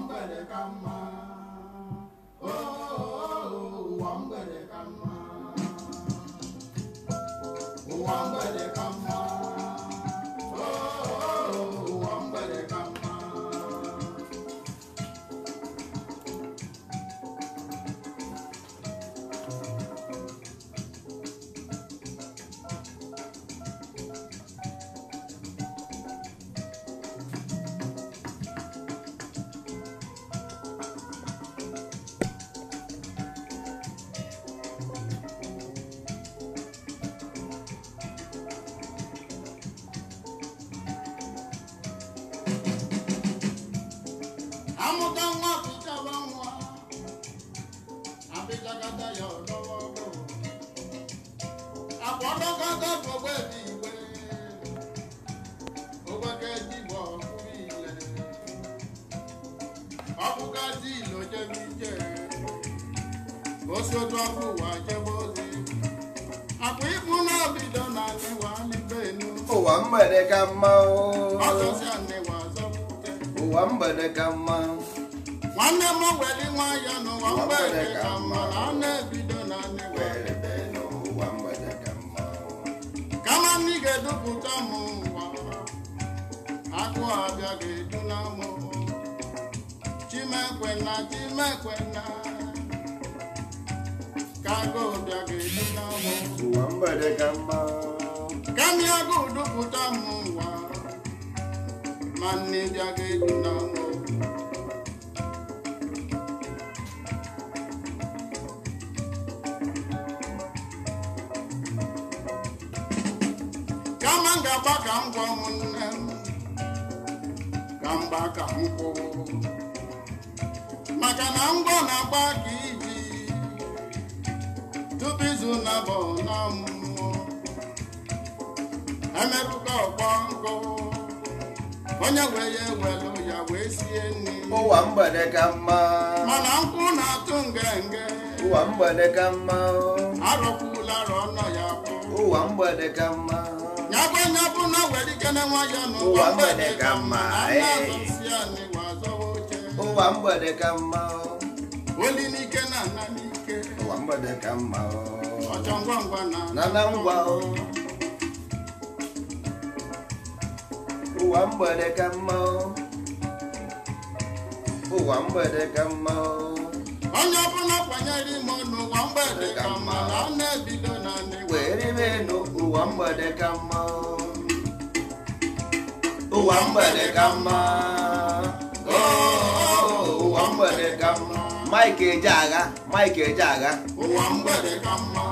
mgbede ka mma am ka m ga-agba ka m gwa m nne m ka mgba ka m maka na ngwa na-agba ka iji tupu izu na-abụ n'ọmụmụ emerụka ọgbọ nkụ onye wee ya ewelu ya wee sie nri ụwa mgbede ka mma mana nkwụ na-atụ ngenge ụwa mgbede ka mma arọkwula ọnọ ya ụwa mgbede ka mma ya gbanye bụ na were ike na nwa ya n'ụwa mgbede ka mma eh. ụwa mgbede ka mma oli n'ike na n'ike ụwa mgbede ka mma ọchọ ngwa ngwa na na ngwa ụwa mgbede ka mma ụwa mgbede ka mma onye ọbụla kwanyere ime n'ụwa mgbede ka mma na ọ na-ebido werimenu ụwa mgbede ka mma ụwa mgbede ka mma ụwa oh, mgbede ka mma Mike Ejeagha Mike ụwa mgbede ka mma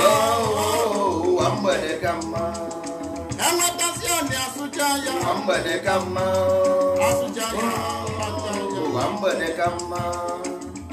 ụwa oh, mgbede ka mma ụwa mgbede ka mma ụwa mgbede ka mma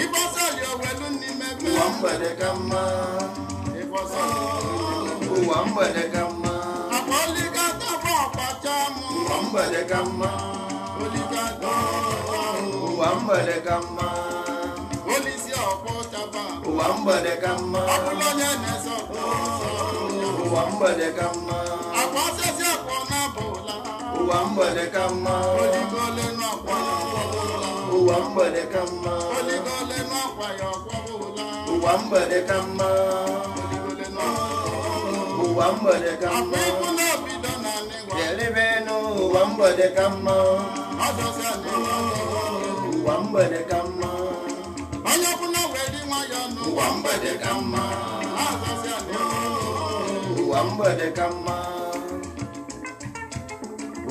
ịgbasali n'ime ụwa mgbede ka mma ụwa mgbede ka mma ụwa mgbede ka mma ụwa mgbede ka mma ụwa mgbede ka mma onye ụwa mgbede ka mma ụwa mgbede ka mma ụwa mgbede ka mma ụwa mgbede ka mma ụwa mgbede ka mma jelebe n'ụwa mgbede ka mma ụwa mgbede ka mma ụwa mgbede ka mma ụwa mgbede ka mma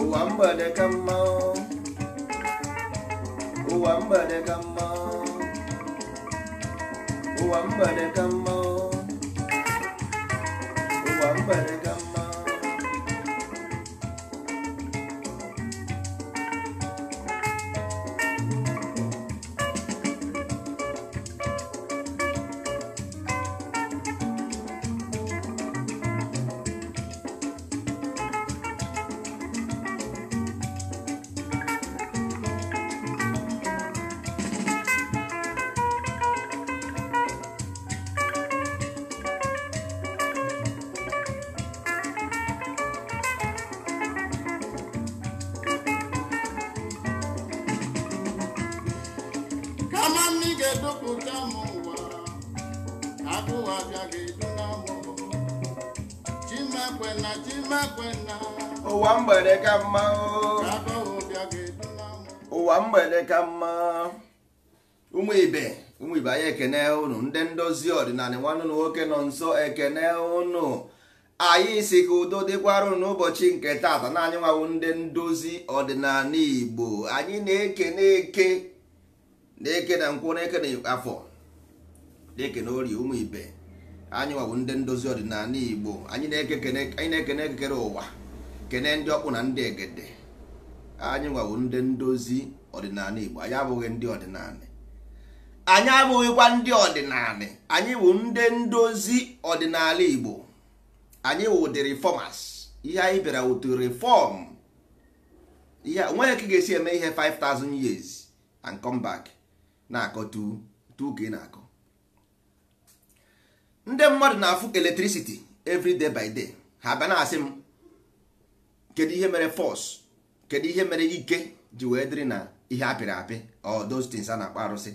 ụwa mgbede ka mma ụwa mgbede ka mma ụwa mgbede ka mma ụwa mgbede ụwa mgbede ka mma ụmụ ibe ụmụ ibe anyị ekene ụnụ ndị ndozi ọdịnala nwanne na nwoke nọ nso ekene ụnụ anyị si ka udo dịkwara n'ụbọchị nke tata na anyị nwawo ndị ndozi ọdịnala igbo anyị na na eke na-eke na nkwụ na-eke na afọ na-ekene orie ụmụ ibe anyị nwawo ndị ndozi ọdịnala igbo anyị na-ekene ekekere ụwa kene ndị ọkpụ na ndị egede anyị nwawo ndị ndozi ọdịnala Igbo anyị abụghị ndị ọdịnala anyị abụghịkwa ndị ọdịnala anyị bụ ndị ndozi ọdịnala Igbo anyị wụ the reformers ihe anyị bịara wụ to reform ihe onweghị ka ị ga-esi eme ihe 5000 years and come back na-akọ tu ka ị na-akọ ndị mmadụ na-afụ electricity every day by day ha bịa na-asị m kedu ihe mere force kedu ihe mere ike ji wee dịrị na ihe apịrị apị ọ a na-akpọ arụsị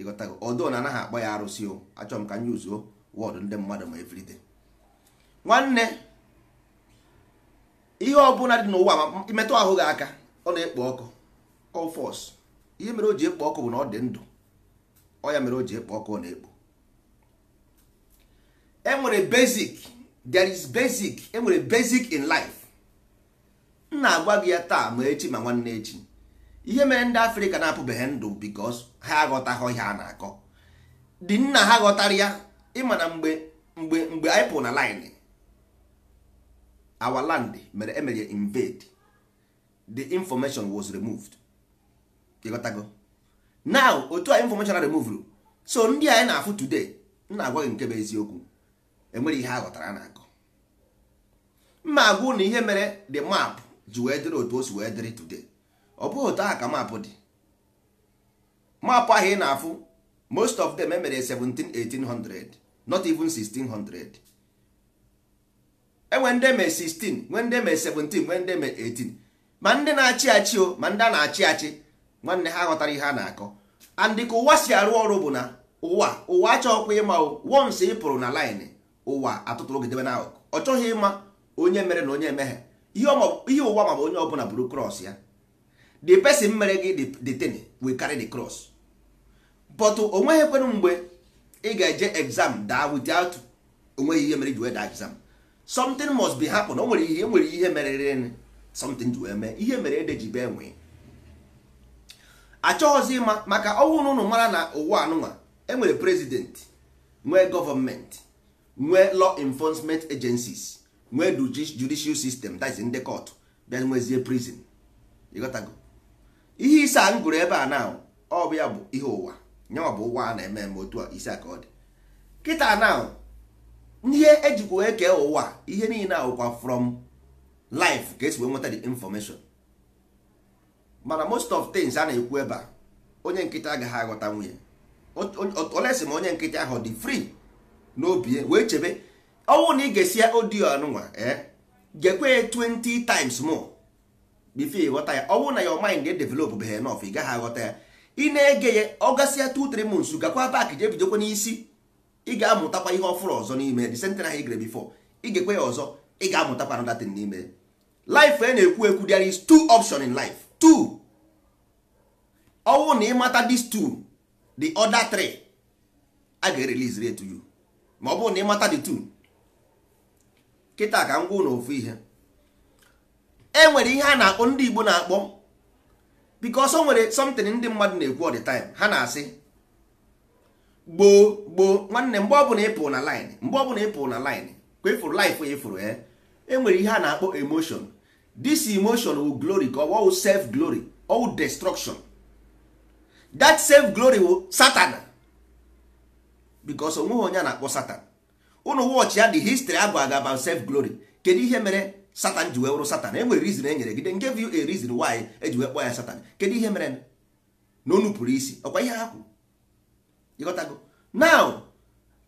ịghọtago ọdụ na anaghị akpọ ya arụsị o achọrọ m ka nye uzuo wọdụ ndị mmadụ ma everyday nwanne ihe ọbụla dị n'ụwa ma imetụ ahụ gị aka ọ na-ekpo ọkụ kọfọs ihe mere o ji ekpo ọkụ bụ na ọ dị ndụ ọ ya mere o ji ekpo ọkụ ọ na-ekpo enwere basic there is basic enwere basic in life m na-agwa gị ya taa ma echi ma nwanne echi ihe mere ndị afrịka na-apụbeghị ndụ bikos ha aghọtaghị ihe a na-akọ dị nna ha ghọtara ya ịma na mgbe mgbe mgbe anyị pụ na lin our land mere emere invade the information was removed ịghọtago now otu a information removed so ndị anyị na-afụ today nna agwaghị nke bụ eziokwu enwere ihe a ghọtara na-akọ mma agwụ na ihe mere the map ji wee dịrị otu o si wee dịrị today ọ bụghị otu aha ka maapụ dị maapụ ahụ ị na-afụ most of them emere 17 not even 1600 enwe ndị eme 16 nwe ndị eme 17 nwe ndị eme 18 e ma ndị na-achị achị o ma ndị a na-achị achị nwanne ha ghọtara ihe a na-akọ andị ka ụwa si arụ ọrụ bụ na ụwa ụwa achọghịkwa ịma o ị pụrụ na laịnị ụwa atụtụrụ gidebe n'akụkụ ọ chọghị ịma onye mere na onye emeghe ihe ụwa ma bụ onye ọbụla bụrụ krọs ya the person mere gị the thing will carry the cross but o nweghị kwenu mgbe ị ga-eje exam daa without onweghị ihe mere ji wee daa exam something must be happen o nwere ihe nwere ihe mere merere something ji wee mee ihe mere ede ji bee nwee achọghịzi ịma maka ọnwụ na ụnụ mara na ụwa anụnwa enwere president nwee gọọmenti nwee law enforcement agencies nwee judicial system that's in the bịa nwezie prison ịghọtago ihe ise a m gụrụ ebe a na ọ bụ ya bụ ihe ụwa nye ọ bụ ụwa a na-eme eme otu a ise ka ọ dị kịta na ihe ejikwa wee kee ụwa ihe niile awụkwa from life ka esi wee nweta the information mana most of things a na-ekwu ebe a onye nkịta agaghị aghọta nwunye olesi ma onye nkịta ahụ dị na n'obi wee chebe ọnwụ na ị ga-esi ya odiyo anụnwa eh? gekwe 20 times more bifo ịghọta ya ọ na your mind ga-edevelop behe enough ị gaghị aghọta ya ị na-ege ya ọ gasịa 2-3 months gakwa back jee bidokwa n'isi ị ga-amụtakwa ihe ọfụrụ ọzọ n'ime the same thing ahụ ị ga-ekwe ya ọzọ ị ga-amụtakwa another thing n'ime life a e na-ekwu ekwu there is two option in life two ọwụ na ị mata these two the 3 a ga-erelease ma ọ bụrụ na ị mata the two ka m gwa ofu ihe enwere ihe a na-akpọ ndị Igbo na-akpọ because o nwere something ndị mmadụ na-ekwu all time ha na-asị gboo gboo nwanne mgbe ọbụla ịpụ na line mgbe ọbụla ịpụ na line ka efuru life efuru e enwere eh. e ihe a na-akpọ emotion this emotion will glory ka ọ self glory ọ wụ destruction that self glory will satan because onweghị onye a na-akpọ satan ụnụ wọchị ya the history agwa aga about self glory kedu ihe mere satan ji wee wụrụ satan enwere reason e nyere gị then give you a reason why eji wee kpọọ ya satan kedu ihe mere na onu pụrụ isi ọkwa ihe ha kwuru ịghọtago naụ.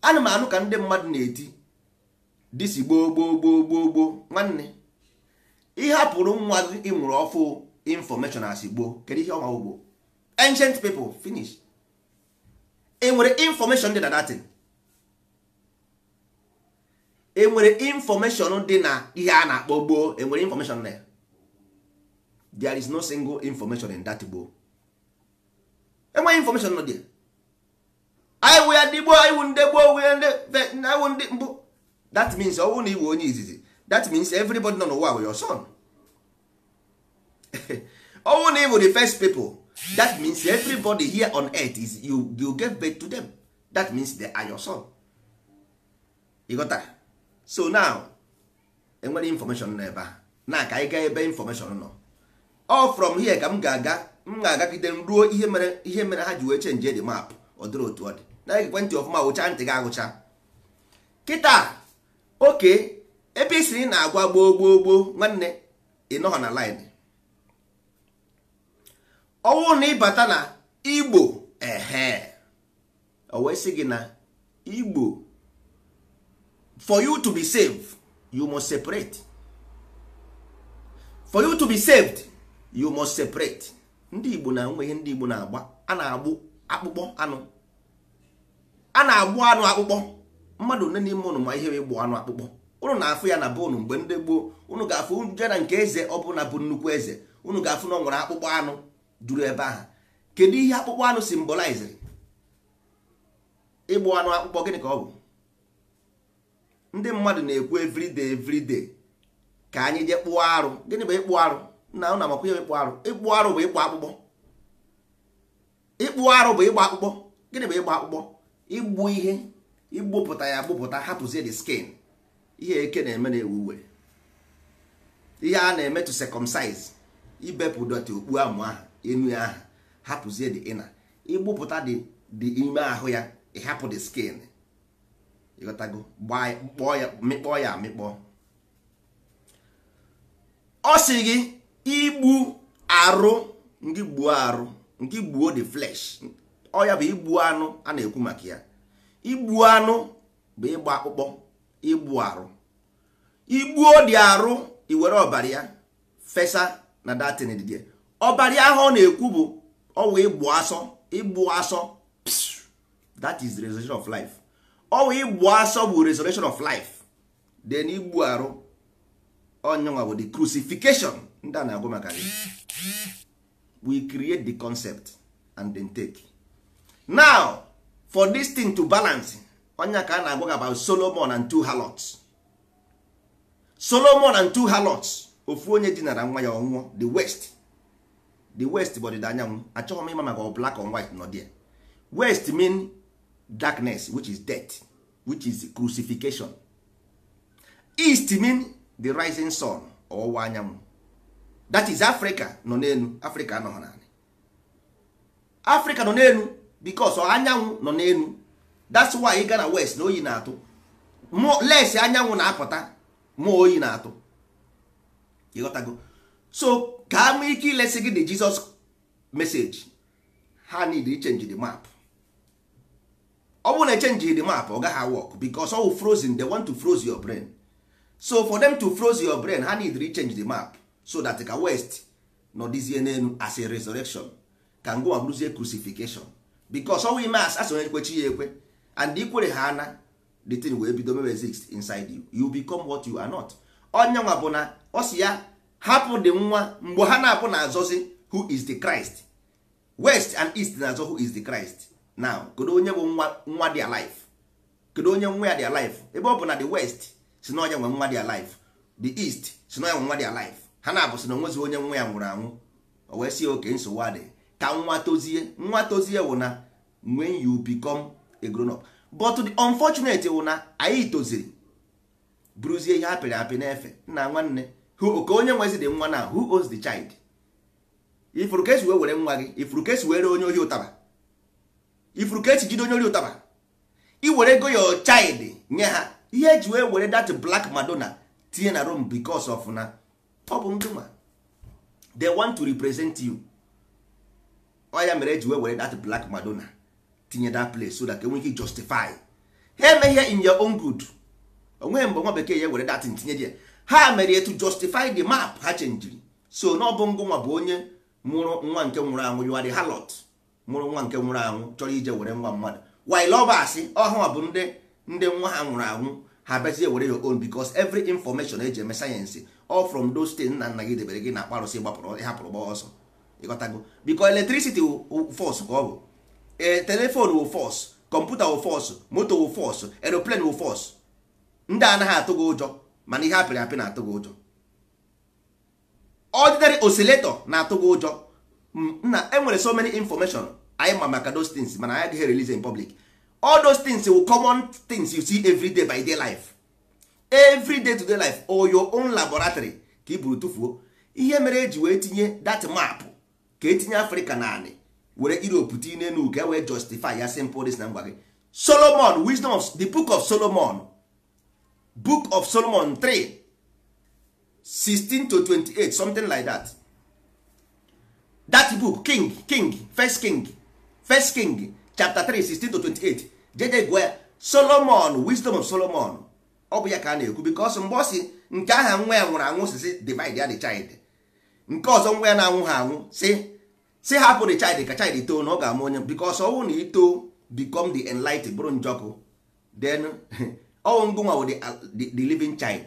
ana m anụ ka ndị mmadụ na-eti disi gboo gboo gboo gboo gboo nwanne ihe hapụrụ nwa gị ịnwụrụ ọfụ infọmeshọn asị gboo kedu ihe ọnwa ugbo ancient people finish e nwere infọmeshọn dị na datin enwere infọmeshọn dị na ihe a na-akpọ gboo enwere infọmeshọn na ya there is no single information in that gboo enweghị information nọ dị iwu ya dị gboo iwu ndị gboo iwu ndị mbụ that means ọwụ na iwe onye izizi that means everybody nọ n'ụwa were your son ọwụ na iwu the first people that means everybody here on earth is you, you give birth to them that means they are your son ị ghọtara so now enwere information n'ebe a na ka anyị gaa ebe information nọ ọ from here ka m ga-aga m ga-agagide m ruo ihe mere ihe mere ha ji wee chenji de map ọ dịrị otu ọ dị na ekwentị ọfụma wụcha ntị gị agụcha kịta oke ebe isiri na-agwa gboo gboo gboo nwanne ịnọghọ na line ọnwụ na ịbata na igbo ehe o wee sị gị na igbo for you to be saved you must separate for you to be saved you must separate ndị igbo na nwe ihe ndị igbo na-agba a na-agbụ akpụkpọ anụ a na-agbụ anụ akpụkpọ mmadụ one n'ime ụnụ ma ihe ịgbụ anụ akpụkpọ ụnụ na-afụ ya na be ụnụ mgbe ndị gboo ụnụ ga-afụ jee na nke eze ọ bụla bụ nnukwu eze ụnụ ga-afụ na ọ nwere akpụkpọ anụ juru ebe ahụ kedu ihe akpụkpọ anụ simboliziri ịgbụ anụ akpụkpọ gịnị ka ọ bụ ndị mmadụ na-ekwu everyday everyday ka anyị jee kpụọ arụ gịnị bụ ịkpụ arụ na ụna makwa ihe ịkpụ arụ ịkpụ arụ bụ ịkpụ akpụkpọ ịkpụ arụ bụ ịgba akpụkpọ gịnị bụ ịgba akpụkpọ igbu ihe igbupụta ya gbupụta hapụzie the skin ihe eke na-eme na-ewu uwe ihe a na-eme to circumcise ibepụ dọtị okpu amụ ahụ enu ya ahụ hapụzie the ịna igbupụta dị ime ahụ ya ịhapụ the skin ịghọtago kpọọ ya mịkpọ ya amịkpọ ọ sị gị igbu arụ ndị gbuo arụ nke gbuo the flesh ọ ya bụ igbu anụ a na-ekwu maka ya igbu anụ bụ ịgba akpụkpọ igbu arụ igbuo dị arụ iwere ọbara ya fesa na datin dịdị ọbara ahụ ọ na-ekwu bụ ọwụ ịgbu asọ ịgbu asọ that is the resurrection of life ọwụ igbu asọ bụ resurrection of life then igbu arụ onyenwa bụ the crucifixion ndị a na-agụ maka gị we create the concept and then take now for this thing to balance onye ka a na-agwa about solomon and two halots solomon and two halots ofu onye dinara nwa ya ọnwụọ the west the west bụ ọdịda anyanwụ achọghị m ịma maka black or white nọ there west mean darkness which is death which is crucifixion east mean the rising sun ọwụwa anyanwụ that is africa nọ n'elu africa anọghị naanị africa nọ n'elu because anyanwụ nọ n'elu that's why ị na west na oyi na-atụ les anyanwụ na-apụta ma oyi na-atụ ịghọtago so ka ama ike ilesi gị the jesus message ha need to change the map ọ bụrụ na echenji the map ọ gaghị work because ọ frozen they want to froze your brain so for them to froze your brain ha need to change the map so that ka west nọdịzie n'elu as a resurrection ka ngwa bụrụzie crucifixion because ọnwụ ime as asonye ekwechi ya ekwe and ikwere ha ana the thing wee bido mewe inside you you become what you are not onye nwa bụ na ọ ya hapụ dị nwa mgbe ha na-apụ na azọzi who is the Christ west and east na-azọ who is the Christ now kedu onye bụ nwa nwa dị alive kedu onye nwa ya dị alive ebe ọ bụ na the west si na ọnya nwe nwa dị alive the east si na ọnya nwe nwa dị alive ha na-abụ si na onwezi onye nwa ya nwụrụ anwụ o wee sie oke nsogbu adị ka nwa tozie nwa tozie wụ na when you become a grown up but the unfortunate wụ na anyị toziri bụrụzie ihe apịrị apị na-efe nna nwanne ka onye nwezi dị nwa na who owns the child ifuru ka esi wee were nwa gị ifuru ka were onye ohi ụtaba ifuru ka esi jide onye ori ụtaba iwere ego ya child nye ha ihe eji wee were dat black madonna tinye na rom bikos of na ọ bụ ndụma they want to represent you ọ mere eji wee were dat black madonna tinye dat place so that enwere ike justify ha emeghe in your own good onweghị mgbe nwa bekee ya were dat ntinye ya ha mere to justify the map ha chenjiri so na ọ bụ bụ onye mụrụ nwa nke nwụrụ anwụ yuari halot mụrụ nwa nke nwụrụ anwụ chọrọ ije were nwa mmadụ while lovers ọhụụ bụ ndị ndị nwa ha nwụrụ anwụ ha bịazie were your own because every information eji eme sayensị ọ from those things nna nna gị debere gị na akparụsị gbapụrụ ịhapụrụ gba ọsọ ịghọtago because electricity force ka ọ bụ e, telephone wụ force kọmputa wụ force moto wụ force aeroplane wụ force ndị anaghị atụ gị ụjọ mana ihe apịrị apị na-atụ gị ụjọ ordinary oscillator na-atụ gị ụjọ nna enwere so many information anyị ma maka those things mana anyị here release in public all those things will common things you see every day by day life every day to day life or your own laboratory ka i buru tụfuo ihe mere eji wee tinye that map ka etinye na naanị were europe tinye n'elu ka e wee justify ya simple this na ngwa gị solomon wisdom the book of solomon book of solomon 3 16 to 28 something like that that book king king first king first king chapter 3 16 to 28 jede gwa solomon wisdom of solomon ọ bụ ya ka a na-ekwu because mgbe ọsị nke aha nwa ya nwụrụ anwụ si si divide ya the child nke ọzọ nwa ya na-anwụ ha anwụ si si hapụ the child ka child too na ọ ga ama onye because ọnwụ na ito become the enlightened bụrụ njọkụ then ọnwụ ngụ nwa bụ uh, the living child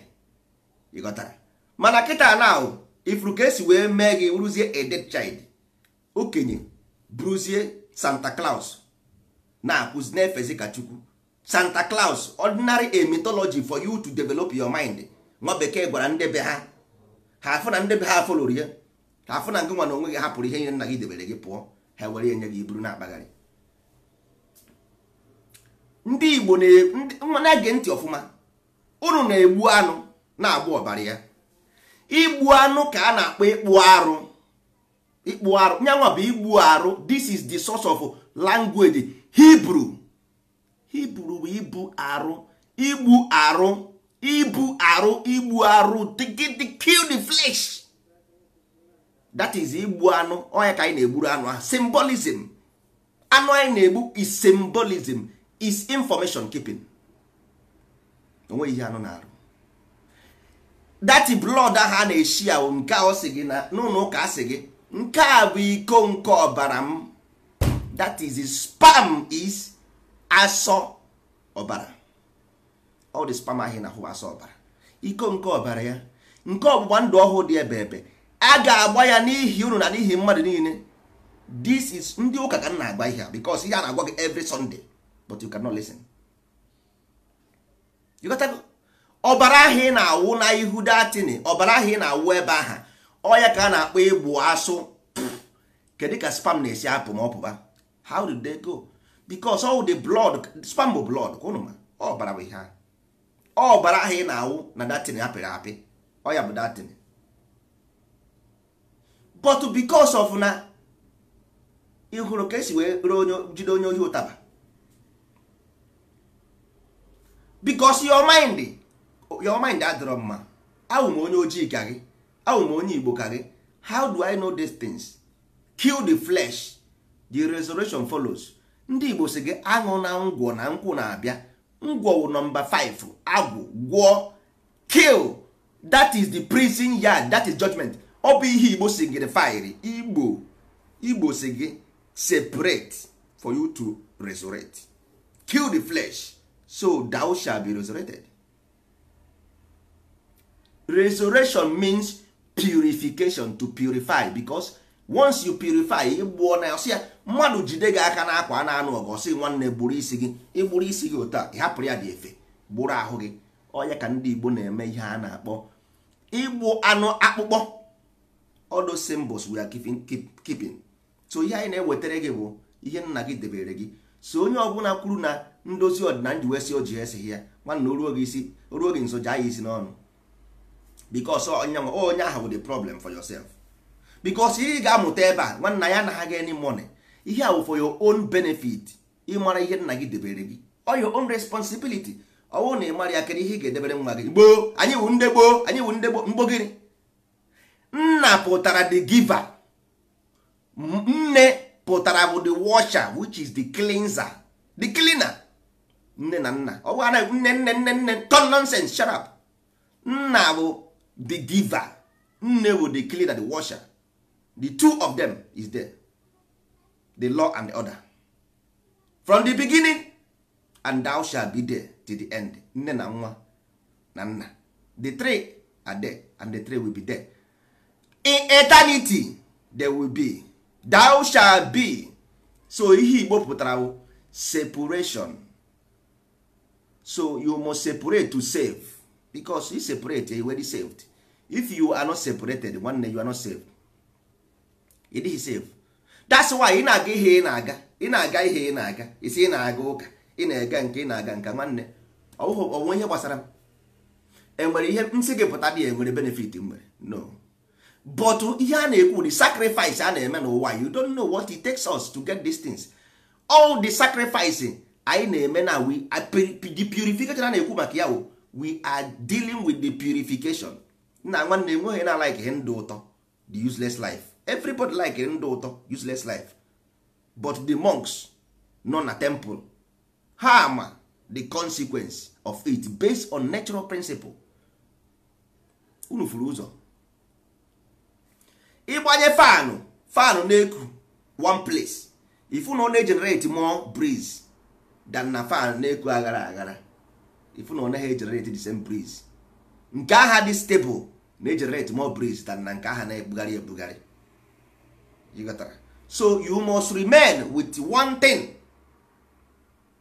ịghọtara mana kịta na ifuru ka esi wee mee gị rụzie a dead child okenye bruzie santa claus na akụzi na-efezi ka chukwu santa claus ordinary a mythology for you to develop your mind nwa bekee gwara ndebe ha ha afụ na ndebe ha foloro ya ha afụ na ngịnwa na onwe gị hapụrụ ihe nyere nna gị debere gị pụọ ha were enye gị iburu na-akpagharị ndị igbo na-ege ntị ọfụma unu na-egbu anụ na-agba ọbara ya igbu anụ ka a na-akpọ ịkpụ arụ ikpu arụ nyanwa bụ igbu arụ this is the source of language Hebrew Hebrew bụ ibu arụ igbu arụ ibu arụ igbu arụ kill the flesh that is igbu anụ onye ka anyị na-egburu anụ ahụ symbolism anụ anyị na-egbu is symbolism is information keeping onwe ihe anụ na-arụ that blood ahụ a na-eshi ahụ nke a ọ gị na n'ụlọ ụka a sị gị nke a bụ iko nke ọbara m that is spam is asọ ọbara ọ dị spam ahụ na asọ ọbara iko nke ọbara ya nke ọgbụgba ndụ ọhụụ dị ebe ebe a ga-agba ya n'ihi unu na n'ihi mmadụ niile this is ndị ụka ka m na-agba ihe a because ihe a na-agwa gị every Sunday but you cannot listen ọbara ị na-awụ na ihu ọbara ị na-awụ ebe aha ọya ka a na-akpọ ịgbụ asụ kedu ka spam na-esi apụ ma ọ pụba how did they go because all the blood spam bụ blood ka ụnụ ma ọbara bụ ihe ahụ ọbara ahụ ị na-awụ na datin apịrị apị ọya bụ datin but because of na ịhụrụ ka esi wee jide onye ohi ụtaba because your mind your mind adịrọ mma ahụ m onye ojii ka gị awụ m onye igbo ka gị how do i know these things kill the flesh the resurrection follows ndị igbo si gị aṅụ na ngwọ na nkwụ na-abịa ngwọ wụ nọmba 5 agwụ gwọ kill that is the prison yard that is judgment ọ bụ ihe igbo si gị fire igbo igbo si gị separate for you to resurrect kill the flesh so thou shall be resurrected resurrection means purification to purify because once you purify ịgbuo na ọsị ya mmadụ jide gị aka n'akwa a na-anụ ọgụ ọsị nwanne gburu isi gị ịgburu isi gị otu ịhapụrụ ya dị efe gburu ahụ gị onye ka ndị Igbo na-eme ihe a na-akpọ igbu anụ akpụkpọ all those symbols we so ihe anyị na-ewetara gị bụ ihe nna gị debere gị so onye ọbụla kwuru na ndozi ọdịnala ji wesị o ji esighị ya nwanna oruo gị isi oruo gị nso jaa ya isi n'ọnụ because onye ahụ bụ problem for yourself because ị ga-amụta ebe a nwanna ya anaghị any money ihe a for your own benefit ịmara ihe nna gị debere gị or your own responsibility ọwụ oh, na ị mara ya kere ihe ị ga-edebere nwa gị gboo anyị wụ ndị gboo anyị wụ ndị gboo mgbogiri nna pụtara the giver nne pụtara bụ the washer which is the cleanser the cleaner nne na nna ọ bụ anaghị nne nne nne nne ton nonsense shut up nna bụ the giver nne dey the cleaner the washer the two of them is there the law and the other from the beginning and thou shall be there till the end nne na nwa na nna the three are there and the three will be there in eternity there will be thou shall be so ihe igbo pụtara separation so you must separate to save becos you separate you already saved if you are not separated nwanne you are not safe it is safe that's why ị na-aga ihe ị na-aga ị na-aga ihe ị na-aga isi ị na-aga ụka ị na-ega nke ị na-aga nka nwanne onwe ihe gbasara m enwere ihe nsị gị pụta dị enwere benefit m nwere no but ihe a na-ekwu the sacrifice a na-eme n'ụwa you don't know what it takes us to get these things all the sacrifice anyị na-eme na we the purification a na-ekwu maka ya we are dealing with the purification nna nwanne nweghị na like ihe ndụ ụtọ the useless life everybody like ndụ ụtọ useless life but the monks nọ na temple ha ama the consequence of it based on natural principle unu furu ụzọ ịgbanye fanụ fanụ na-eku one place ifu na ọ na-egenerate more breeze than na fanụ na-eku aghara aghara ifu na ọ naghị egenerate the same breeze nke agha dị stable na-egenerate more breeze than na nke agha na-ebugharị ebugharị so you must remain with one thing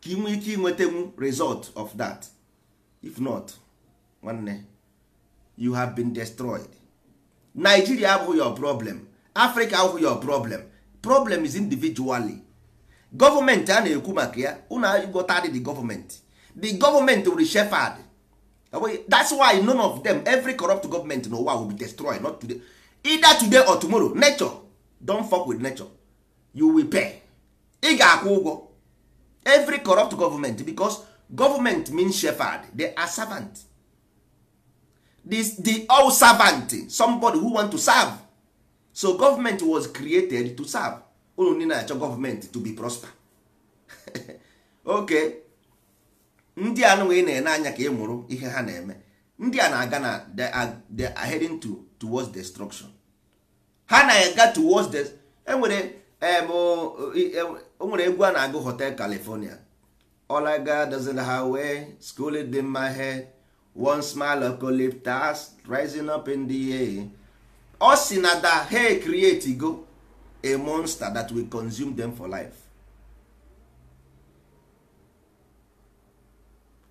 ka inwe ike inwetenwu result of that if not nwanne you have been destroyed Nigeria abụghị your problem Africa abụghị your problem problem is individually gọọmenti a na-ekwu maka ya unu agụta dị the gọọmenti the gọọmenti were shefard that's why none of them every corrupt government in ụwa will be destroyed not today either today or tomorrow nature don fuck with nature you will pay ị ga-akwụ ụgwọ every corrupt government because government means shepherd they are servant this the all servant somebody who want to serve so government was created to serve unu achọ government to be prosper okay ndị a nụnwa ị na-ene anya ka ị e mụrụ ihe ha na-eme ndị a na-aga na they are heading to towards destruction ha na-aga towards the enwere e, nwere egwu a na-agụ hotel california all I got is in highway school it my head one smile eucalyptus rising up in the air ọ sị na da ha create go a monster that will consume them for life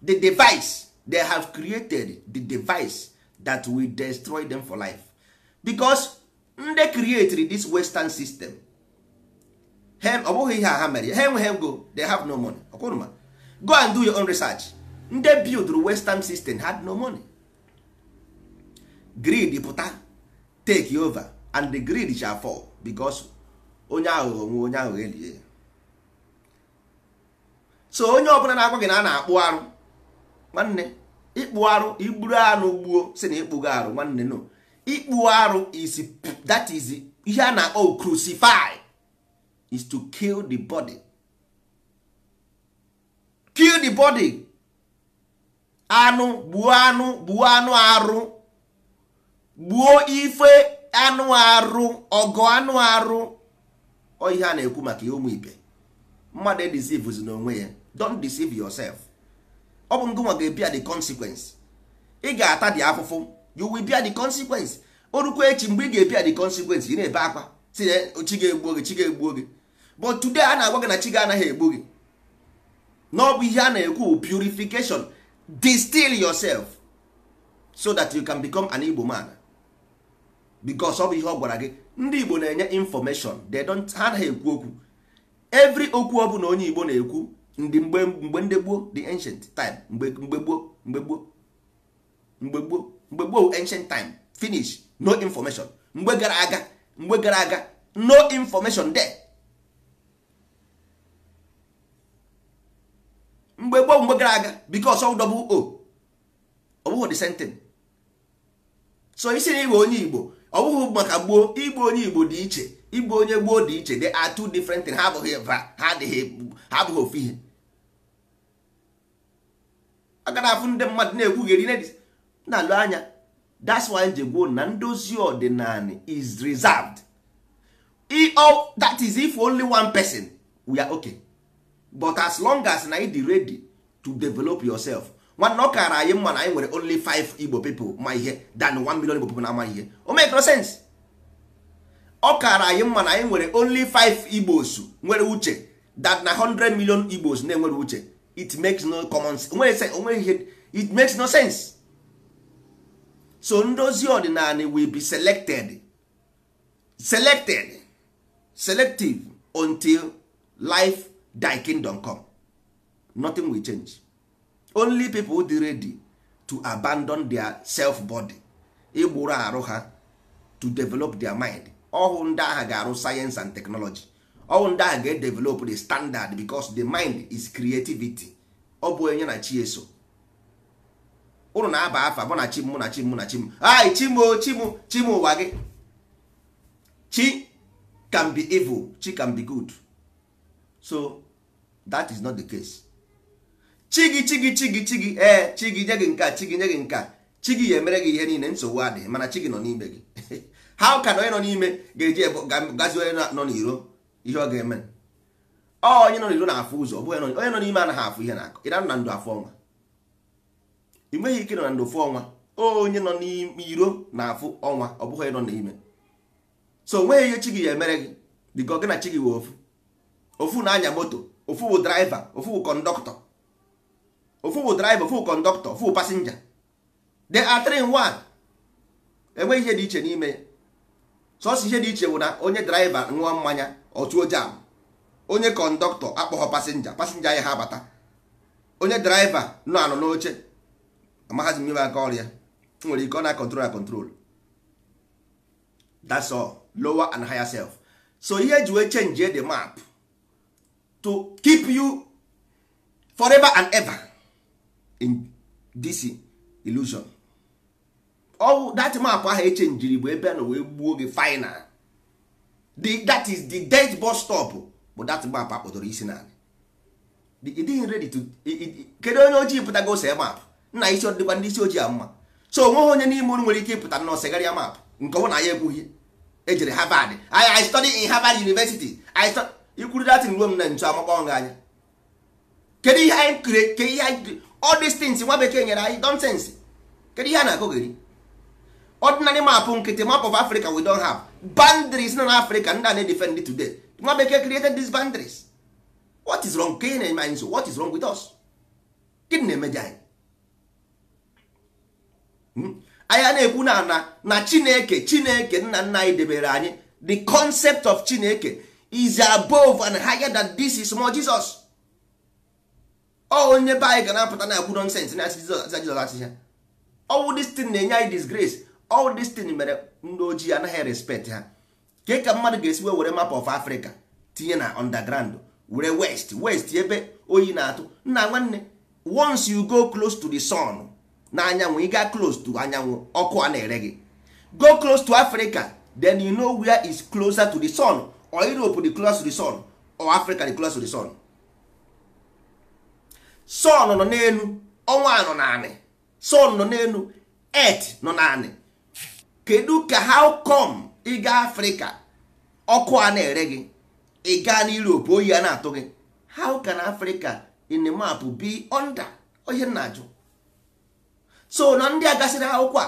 the device they have created the device that will destroy them for life because nde creatri this western system ọ bụghị ihe ha mere ha enweghị go they have no money ọkwụrụma go and do your own research nde build western system had no money greed pụta take over and the greed shall fall because onye aghụghọ nwe onye aghụghọ elie so onye ọbụla na-agwa gị na a na-akpụ arụ nwanne ịkpụ arụ igburu anụ gbuo si na ịkpụgo arụ nwanne no ikpu arụ is that is ihe a na-akpọ crucify is to kill the body kill the body anụ gbuo anụ gbuo anụ arụ gbuo ife anụ arụ ọgọ anụ arụ ọ ihe a na-ekwu maka ya ụmụ ibe mmadụ edisivuzi n'onwe ya don't deceive yourself ọ bụ ngụnwa ga-ebia the consequence ị ga-ata dị afụfụ you will bia the consequence orukwa echi mgbe ị ga-ebia the consequence ị na-ebe akwa si na chi ga-egbuo gị chi ga-egbuo gị but today a na-agwa gị na chi ga-anaghị egbu gị na ọ bụ ihe a na-ekwu purification distil yourself so that you can become an Igbo man because ọ bụ ihe ọ gwara gị ndị Igbo na-enye information they don't ha anaghị ekwu okwu every okwu ọ bụla onye Igbo na-ekwu ndị mgbe mgbe ndị gboo the ancient time mgbe mgbe gboo mgbe gboo mgbe gboo mgbe gboo ancient time finish no information mgbe gara aga mgbe gara aga no information there mgbe gboo mgbe gara aga because ọ dọbụ o ọ bụghị the same thing so isi na igbo onye igbo ọwụwa maka gboo igbo onye igbo dị iche igbo onye gboo dị iche they are two different things ha abụghị ha adịghị ha abụghị ofu ihe aga na afụ ndị mmadụ na dis na-alụ anya that's why ji na ndozi ọdịnala is reserved that is if only one person we are okay but as long as na ị dị ready to develop yourself nwanne ọ kara anyị mma na anyị nwere only 5 igbo people ma ihe than 1 million igbo people na ama ihe o make no sense ọ kara anyị mma na anyị nwere only 5 igbos nwere uche that na 100 million igbos na-enwere uche it makes no common it makes no sense so ndozi ọdịnala will be selected selected selective until life thy kingdom come nothing will change only people dey ready to abandon their self body igburu arụ ha to develop their mind ọhụ ndị agha ga-arụ science and technology ọnwụ ndị ahụ ga-edevelop the standard because the mind is creativity ọ bụ onye na chi eso ụnụ na-aba afa mụ na chi mụ na chi mụ na chi m ai chimo chimo chimo ụwa gị chi can be evil chi can be good so that is not the case chi gị chi gị chi gị chi gị ee chi gị nye gị nke chi gị nye gị nke chi gị ya emere gị ihe niile nsogbu adịghị mana chi gị nọ n'ime gị how can onye nọ n'ime ga-eji gazi onye nọ n'iro ihe ọ ga-eme ọ onye nọ n'iro na-afụ ụzọ bụ onye nọ n'ime anaghị afụ ihe na-akọ ịra na ndụ afụ ọnwa ị nweghị ike nọ na ndụ fụ ọnwa onye nọ n'ime iro na-afụ ọnwa ọ bụghị onye nọ n'ime so onweghị ihe chi gị ya emere gị dịka ọ na chi gị wee ofu ofu na-anya moto ofu bụ draiva ofu bụ kọndọktọ ofu bụ draiva ofu bụ kọndọktọ ofu bụ pasinja they are three enweghị ihe dị iche n'ime ya sọsọ ihe dị iche bụ na onye draiva ṅụọ mmanya ọtụo jam onye kọndọktọ akpọghọ pasenja pasenja ya ha abata onye draiva nọ anọ n'oche amaghazi mmebe aka ọrịa nwere ike ọ na control na that's all lower and higher self so ihe ji wee change the map to keep you forever and ever in this illusion ọ that map ahụ echenjiri bụ ebe a na wee gbuo gị final the that is the dead bus stop bụ that map akpọdoro isi naanị ịdịghị ready to kedu onye ojii pụtago ose map nna isi ọdịkwa ndị isi ojii a mma so onweghị onye n'ime unu nwere ike ịpụta na osegharịa map nke ọ na ya ekwughị ejere harvard i study in harvard university i study ikwuru datin ruo m na ntu amakpọ nga anya kedu ihe anyị kere ke ihe anyị all these things nwa bekee nyere anyị nonsense kedu ihe a na-akụgheri ordinary map nkịtị map of africa we don't have boundaries nọ n'afrịka ndị a na-edefend today nwa bekee created these boundaries what is wrong ka na-eme anyị so what is wrong with us gịnị na-emeje anyị anyị na-ekwu na ana na chineke chineke nna nna anyị debere anyị the concept of chineke is above and higher than this is more jesus ọ oh, onye be anyị ga na-apụta na-ekwu nonsens na asị jizọs asịcha ọwụ destin na-enye anyị disgrace ọwụ oh, destin mere ndị ojii anaghị respect ha ke ka mmadụ ga esiwe were map of Africa tinye na underground were west west ebe oyi na-atụ nna nwanne once you go close to the sun na anyanwụ ịga close to anyanwụ ọkụ a na-ere gị go close to Africa then you know where is closer to the sun or Europe the closer to the sun or Africa the closer to the sun sun nọ n'elu ọnwa nọ n'anị sun nọ n'elu earth nọ n'anị kedu ka how come ịga afrịka ọkụ a na-ere gị ịga gaa oyi a na-atụ gị how can africa in the map be under onye na-ajụ so na ndị a gasịrị akwụkwọ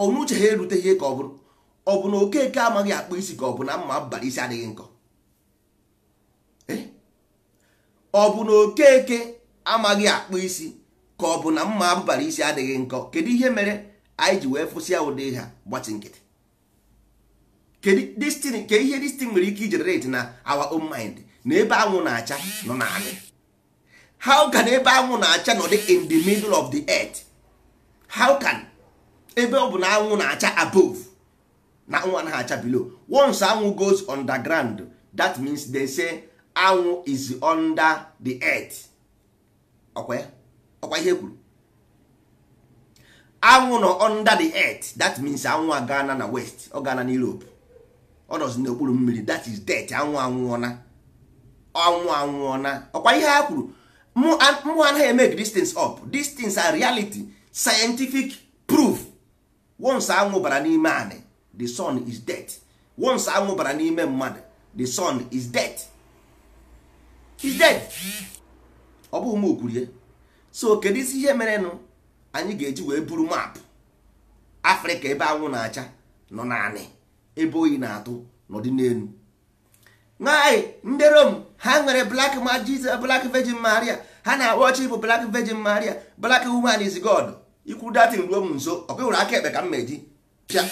a uche ha erute ihe ka ọ bụrụ ọ bụ na okeke amaghị akpụ isi ka ọ bụ na mma abalị isi adịghị nkọ eh? okeke amaghị akpụ isi ka ọ bụ na mma abalị isi adịghị nkọ kedu ihe mere anyị ji wee ya ụdị ha gbachi nkịtị kedụ ke ihe destin nwere ike ijenerate na our own mind na ebe anwụ na-acha nọ na naanị how can ebe anwụ na-acha nọ dị in the middle of the earth how can ebe ọ bụ na anwụ na-acha above na anwụ na acha below once anwụ goes underground that means they say anwụ is under the earth ọkwa ihe e kwuru anwụ nọ under the earth that means anwụ agana na west ọ gana na europe ọ nọzi n'okpuru mmiri that is death anwụ anwụọna anwụ anwụọna ọkwa ihe ha kwuru mụ anaghị emeg distance up distance are reality scientific proof once anwụ bara n'ime anị the sun is death once anwụ bara n'ime mmadụ the sun is death is death ọ bụ mụ kwurie so kedu isi ihe merenụ anyị ga-eji wee buru maapụ afrịka ebe anwụ na-acha nọ naanị ebe oyi na-atụ n'ọdị n'elu nwaanyị ndị rom ha nwere blak ma magic blak vejin maria ha na-akpọ ọchị bụ blak vejin maria blak woman is god ikwu datin ruo m nso ọkụ hụrụ aka ekpe ka m meji pịa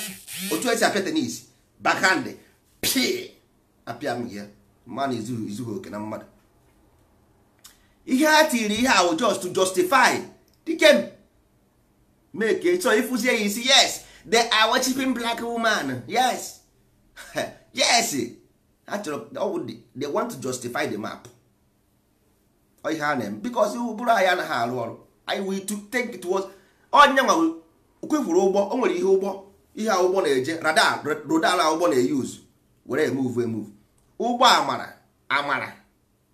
otu esi apịa tenis bakhandị pịa apịa m ya mmanụ izughị oke na mmadụ ihe a tiri ihe ahụ just to justify dike make ka ịchọ ịfụzie ya isi yes the are worshiping black woman yes yes eh. ha they want to justify the map ihe a na-eme because ụbụrụ anyị anaghị arụ ọrụ anyị we to take it was onye oh, nwa kwefuru ụgbọ o nwere ihe oh, ụgbọ ihe ụgbọ na-eje radar radar ụgbọ na-eyuz were emove emove ụgbọ amara amara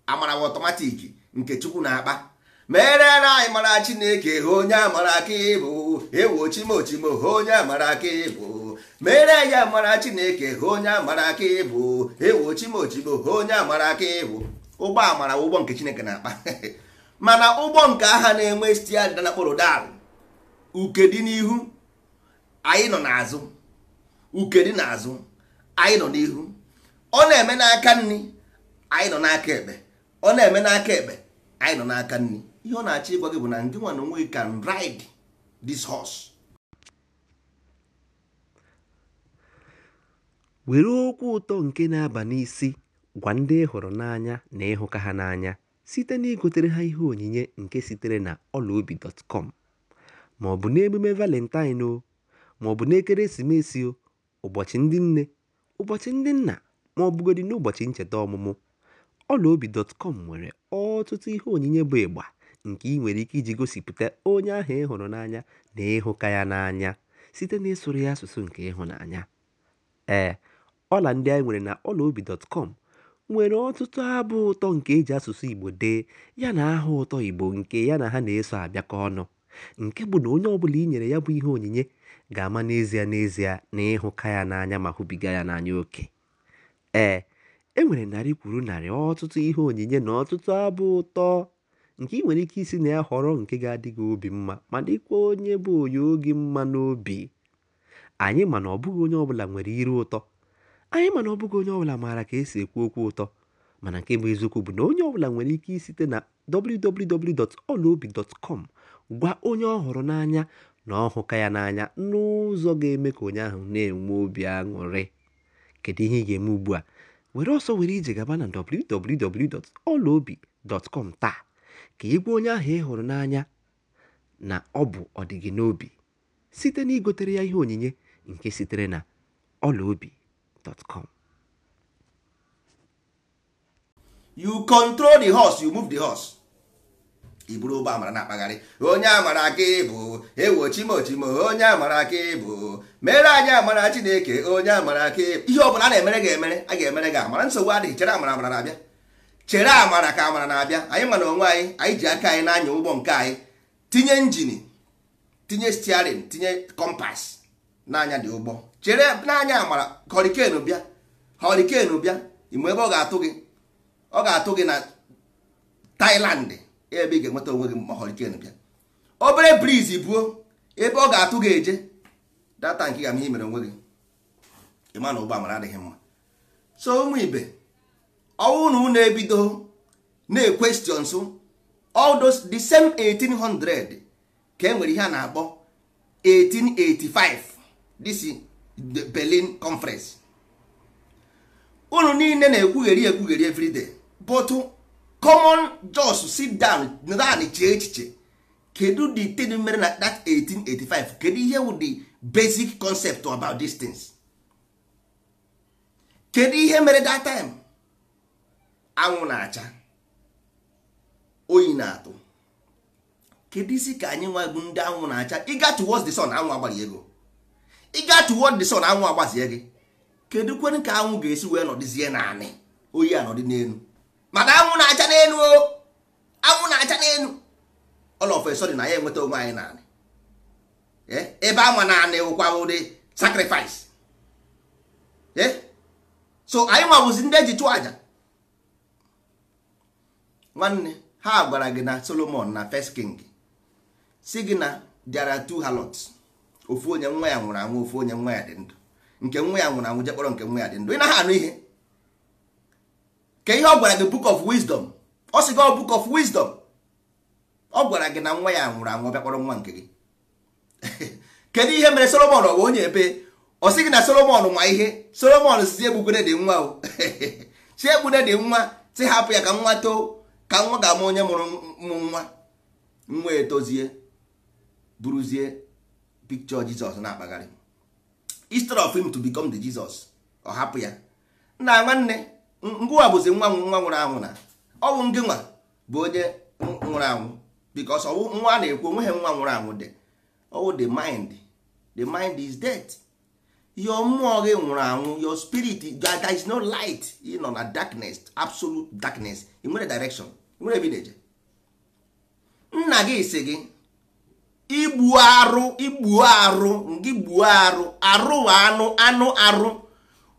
amara bụ ọtọmatik nke chukwu na-akpa mere anyị mara chineke onye amara aka ịbụ ewu onye amara aka ịbụ chineke ha onye amara aka ịbụ onye amara aka ịbụ ụgbọ amara ụgbọ nke chineke na-akpa mana ụgbọ nke agha na-enwe dị na kpọrọ dal uke dị n'ihu anyị nọ n'azụ anyị nọ n'ihu ọ na-eme n'aka nri anyị nọ n'aka ekpe ọ na-eme n'aka ekpe anyị nọ n'aka nri ihe ọ na-achọ ịgwa gị bụ na ndị nwa onwe can ride this horse. were okwu ụtọ nke na-aba n'isi gwa ndị ịhụrụ hụrụ n'anya na ịhụka ha n'anya site na igotere ha ihe onyinye nke sitere na ọlaobi.com ma ọ bụ n'emume valentine o ma ọ bụ n'ekeresimesi o ụbọchị ndị nne ụbọchị ndị nna ma ọ bụgodị n'ụbọchị ncheta ọmụmụ ọlaobi.com nwere ọtụtụ ihe onyinye bụ ịgba nke ị nwere ike iji gosipụta onye ahụ ị hụrụ n'anya na ịhụka ya n'anya site n'ịsụrụ ya asụsụ nke ịhụnanya. Ee, ọla ndị anyị nwere na ọlaobi.com nwere ọtụtụ abụ ụtọ nke e ji asụsụ Igbo dee yana aha ụtọ Igbo nke ya na ha na-eso abịakọ ọnụ, nke bụ na onye ọbụla i nyere ya bụ ihe onyinye ga-ama n'ezie n'ezie na ịhụka ya n'anya ma hụbiga ya n'anya oke. Ee, e nwere narị kwuru narị ọtụtụ ihe onyinye na ọtụtụ abụ ụtọ. nke ị nwere ike isi na ya họrọ nke ga-adị gị obi mma ma dịkwa onye bụ onye oge mma n'obi anyị ma na ọbụghị onye ọbụla nwere iru ụtọ anyị ma na ọbụghị onye ọbụla maara ka esi ekwu okwu ụtọ mana nke bụ eziokwu bụ na onye ọbụla nwere ike isite na www.olaobi.com gwa onye ọ hụrụ n'anya na ọ hụka ya n'anya n'ụzọ ga-eme ka onye ahụ na-enwe obi aṅụrị kedu ihe ị ga-eme ugbu a were ọsọ were ije gaba na www.olaobi.com taa ka ị onye ahụ ị hụrụ n'anya na ọ bụ ọdịgị n'obi site na igotere ya ihe onyinye nke sitere na ọlaobi.com. You control the horse, you move the horse. i buru ụgbọ amara na-akpagharị onye amara aka ịbụ ewo chimochimo onye amara aka ịbụ mere anyị amara chineke onye amara aka ịbụ ihe ọbụla a na-emere ga-emere a ga-emere gị amara nsogbu adịghị chere amara amara na-abịa chere amara ka amara na-abịa anyị mana onwe anyị anyị ji aka anyị na-anya ụgbọ nke anyị tinye injin tinye stiarin tinye kọmpas n'anya dị ụgbọ chere n'anya amara họriken bịa họriken bịa ime ebe ọ ga-atụ gị ọ ga-atụ gị na tailand ebe ị ga-enweta onwe gị ma bịa obere briz buo ebe ọ ga-atụ gị eje data nke ga m ihe mere onwe gị ịma na ụgbọ amara adịghị mma so ụmụ ibe ọwụ na unu ebido na-ekwestion so those the same 1800 ka e nwere ihe a na-akpọ 1885 this is the Berlin conference unu niile na-ekwugheri ekwugheri everyday but common jos sit down naanị chee echiche kedu the thing mere na that 1885 kedu ihe wụ the basic concept about these things kedu ihe mere that time anwụ na-acha oyi na-atụ kedu isi ka anyị nwa bụ ndị anwụ na-acha ịga towards the sun anwụ agbazie gị kedu kwenu ka anwụ ga-esi wee nọdịzie naanị oyi anọdị n'elu mana anwụ na-acha n'elu o anwụ na-acha n'elu all of a na ya enweta onwe anyị naanị eh? ebe ama naanị ụkwa ụdị sacrifice eh? so anyị nwabụzi ndị eji chụọ aja nwanne ha gwara gị na solomon na first king si gị na there are two harlots ofu onye nwa ya nwụrụ anwụ ofu onye nwa ya dị ndụ nke nwa ya nwụrụ anwụ jekpọrọ nke nwa ya dị ndụ ị naghị anụ ihe ka ihe ọ gwara gị book of wisdom ọ sị gị oh, book of wisdom ọ gwara gị na nwa ya nwụrụ anwụ bịakpọrọ nwa nke gị kedu ihe mere solomon ọ bụ onye ebe ọ sị gị na solomon nwa ihe solomon si egbugone dị nwa o si egbune dị nwa si hapụ ya ka nwa too ka nwa ga-ama onye mụrụ mụ nwa nwa etozie buruzie picture jizọs na-akpagharị instead of him to become the jizọs ọ hapụ ya nna nwanne ngwa bụzi nwa nwa nwụrụ anwụ na ọ bụ nwa bụ onye nwụrụ anwụ because ọwụ nwa na-ekwu onweghị nwa nwụrụ anwụ dị ọwụ the mind the mind is dead. your mmụọ gị eh, nwụrụ anwụ your spirit there is no light ị nọ na darkness absolute darkness ị nwere direction nwere ebideje nna gị si gị igbu arụ igbu arụ ngị gbuo arụ arụ anụ anụ arụ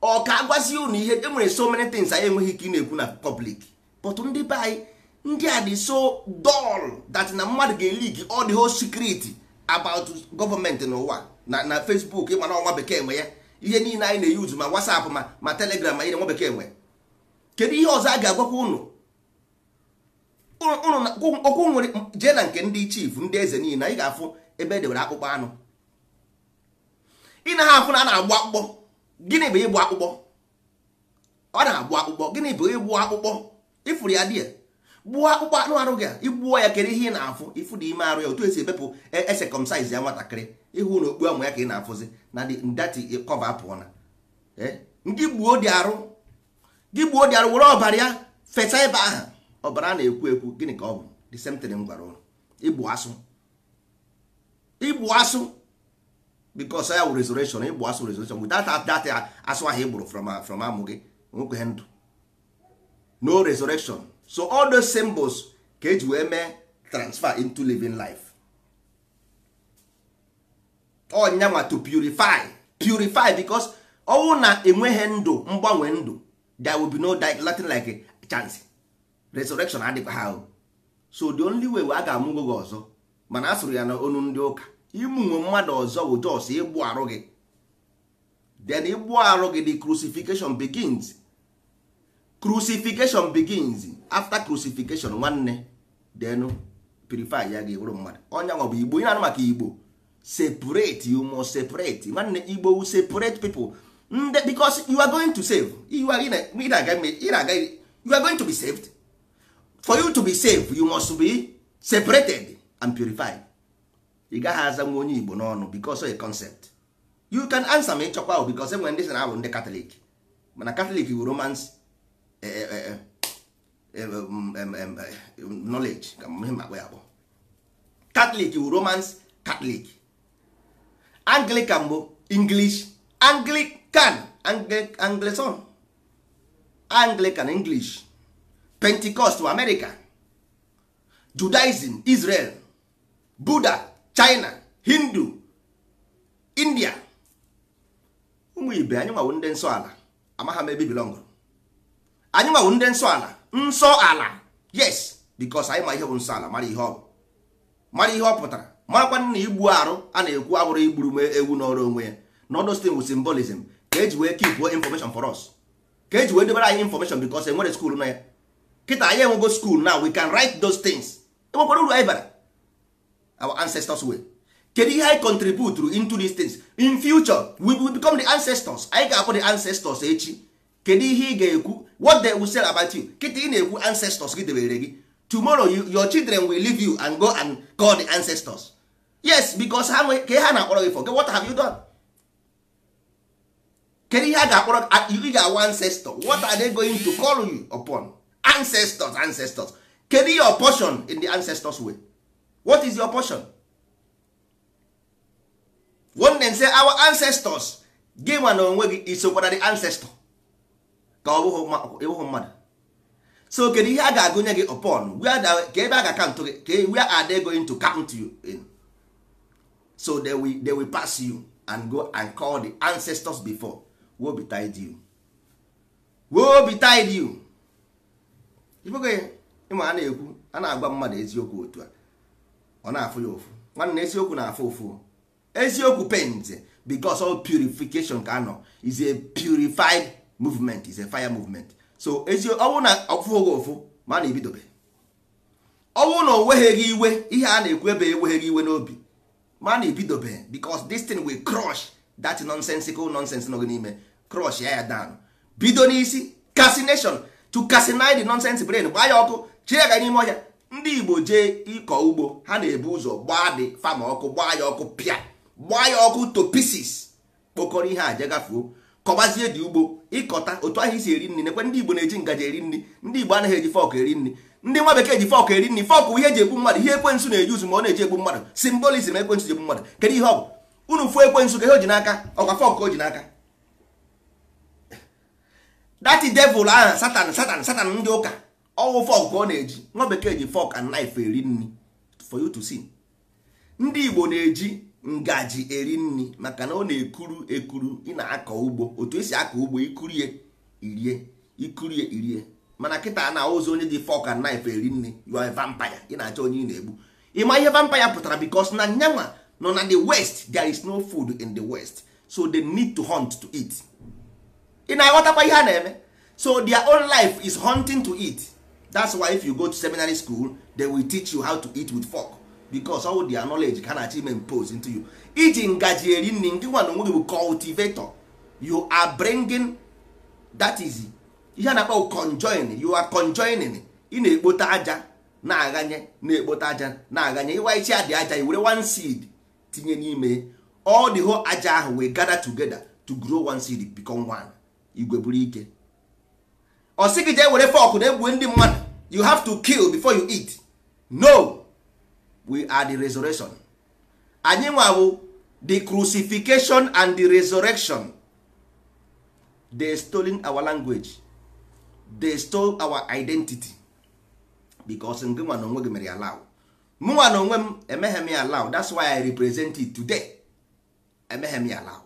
ọ ka agwazi unu ihe e nwere so many things anyị enweghị ike ị na-ekwu na public but ndị be anyị ndị a dị so dull that na mmadụ ga-elik all the whole secret about n'ụwa na na facebook ịma na ọnwa bekee nwe ya ihe niile anyị na-eyuzu ma whatsapp ma ma telegram ma ihe nwa bekee nwe kedu ihe ọzọ a ga-agwakwa unu okwu nwere jee na nke ndị chief ndị eze niile anyị ga-afụ ebe e akpụkpọ anụ ị na ha afụ na a na-agbụ akpụkpọ gịnị bụ ịgbụ akpụkpọ ọ na-agbụ akpụkpọ gịnị bụ ịgbụ akpụkpọ ịfụrụ ya dịa gbuo akpụkpọ anụ arụ gị igbuo ya kedu ihe ị na-afụ ịfụ dị ime arụ ya otu esi ebepụ esekọmsaiz e ya nwatakịrị ịhụ na okpu anwụ ya ka ị na-afụzi na ndati kọva pụọ na eh, ndị gbuo dị arụ gị gbuo dị arụ were ọbara ya fesa ebe ahụ ọbara na-ekwu ekwu gịnị ka ọ bụ the m gwara ụlọ igbu asụ igbu asụ because ya wụ resurrection igbu asụ resurrection without that asụ ahụ igburu from from amụ gị nwekwe ndụ no resurrection so all those symbols ka eji wee mee transfer into living life ọnyanwa to purify purify because ọnwụ na enweghị ndụ mgbanwe ndụ there will be no latin like a chance resurrection adịkwa ha so the only way a ga-amụgo gị ọzọ mana a sụrụ ya na onu ndị ụka imunwe mmadụ ọzọ bụ jos ịgbụ arụ gị then ịgbụ arụ gị the crucifixion begins crucifixion begins after crucifixion nwanne then purify ya gị bụrụ mmadụ ọnyanwa bụ igbo ị na-anụ maka igbo separate you must separate nwanne igbo separate pipo nde mm, because you are going to save you are, you are, you are going to be saved for you to be saved you must be separated and purified ị gaghị aza nwa onye igbo n'ọnụ because of a concept you can answer me chọkwa ahụ because enwere ndị sị na ahụ ndị katọlik mana katọlik wu romans eh, eh, eh, um, um, um, knowledge ka ihe makpọ ya bụ catholic wu romans catholic anglican bụ english anglican anglison anglican english pentecost bụ america judaism israel buddha china hindu india ụmụ ibe anyị nwawo ndị nsọ ala amagha m ebe bilong anyị nwawo ndị nsọ ala nsọ ala yes bịkọs anyị ma ihe bụ nsọ ala mara ihe ọ mara ihe ọ pụtara marakwa na igbu arụ a na-ekwu abụrụ igburu m ewu n'ọrụ onwe ya na ọdụ bụ simbolism ka eji wee kipuo information for us ka eji wee debere anyị information because e nwere skuul na ya kịta anyị enwego skuul na we can write those things enwekwara uru anyị bara our ancestors way kedu ihe anyị contribute into these things in future we will become the ancestors anyị ga-akpọ the ancestors echi kedu ihe ị ga-ekwu what they will say about you kịta ị na-ekwu ancestors gị debere gị tomorrow you, your children will leave you and go and call the ancestors yes because ha nwere ka ha na-akpọrọ gị for gị, what have you done kedu ihe a ga-akpọrọ you ga-awa uh, ancestors, what are they going to call you upon ancestors ancestors kedu your portion in the ancestors way what is your portion one then say our ancestors gị nwa na onwe gị isokwara the ancestor ka ọ bụghị mmadụ so kedu ihe a ga-agụnye gị upon where ka ebe a ga-akantụ gị where are they going to count you in so they will, they will pass you and go and call the ancestors before be tied you woe betide you ibogo you ịma a na-ekwu a na-agwa mmadụ eziokwu otu a ọ na-afụ ya ofu nwanne eziokwu na-afụ ofu eziokwu pains because all purification ka anọ is a purified movement is a fire movement so ọwụ na ọfụghị ofu ma na-ebidobe ọwụ na o iwe ihe a na-ekwu ebe enweghị iwe n'obi mana ibidobe e because this thing will crush that nonsensical nonsense nọ n'ime crush ya ya down bido n'isi casination to cassinate the nonsense brain gbaa ya ọkụ chie ya n'ime ọhịa ndị igbo jee ịkọ ugbo ha na-ebu ụzọ gbaa dị fama ọkụ gbaa ya ọkụ pịa gbaa ya ọkụ to pieces kpokọrọ ihe a jegafuo kọbazie dị ugbo ịkọta otu ahụ isi eri nri nekwe ndị igbo na-eji ngaji eri nri ndị igbo anaghị eji fọk eri nri ndị nwa bekee ji fọk eri nri fọk ihe eji egbu mmadụ ihe ekwensu na-eji uzu ma ọ na-eji egbu mmadụ simbolizm ekwensu ji egbu mmadụ kedu ihe ọ bụ unu fụ ekwensu ka ihe o ji n'aka ọkwa fọk ka o ji n'aka dati devil aha satan satan satan ndị ụka ọwụ fọk ka ọ na-eji nwa bekee ji fọk and naif eri nri for you to see ndị igbo na-eji ngaji eri nri maka na ọ na-ekuru ekuru ị na-akọ ugbo otu esi akọ ugbo ikurie irie ikurie irie mana kịta na ozu onye dị fork and knife eri nri you are a vampire ị na-achọ onye ị na-egbu ịma ihe vampire pụtara because na nyanwa nọ na the west there is no food in the west so they need to hunt to eat ị na-aghọtakwa ihe a na-eme so their own life is hunting to eat that's why if you go to seminary school they will teach you how to eat with fork because all the knowledge can achievement impose into you iji ngaji eri nri ndị nwa na onwe gị bụ cultivator you are bringing that is ihe a na-akpọ conjoin you are conjoining ị na-ekpote aja na-aghanye na-ekpote aja na-aghanye ịwaichi adị aja i were one seed tinye n'ime all the whole aja ahụ we gather together to grow one seed become one igwe buru ike ọ sị gị jee were fọk na-egbu ndị mmadụ you have to kill before you eat no we are the resurrection anyị nwa the crucifixion and the resurrection they stolen our language they stole our identity because nke nwa na onwe gị mere ya law mụnwa na onwe m emeghe m ya law that's why i represent it today emeghe m ya law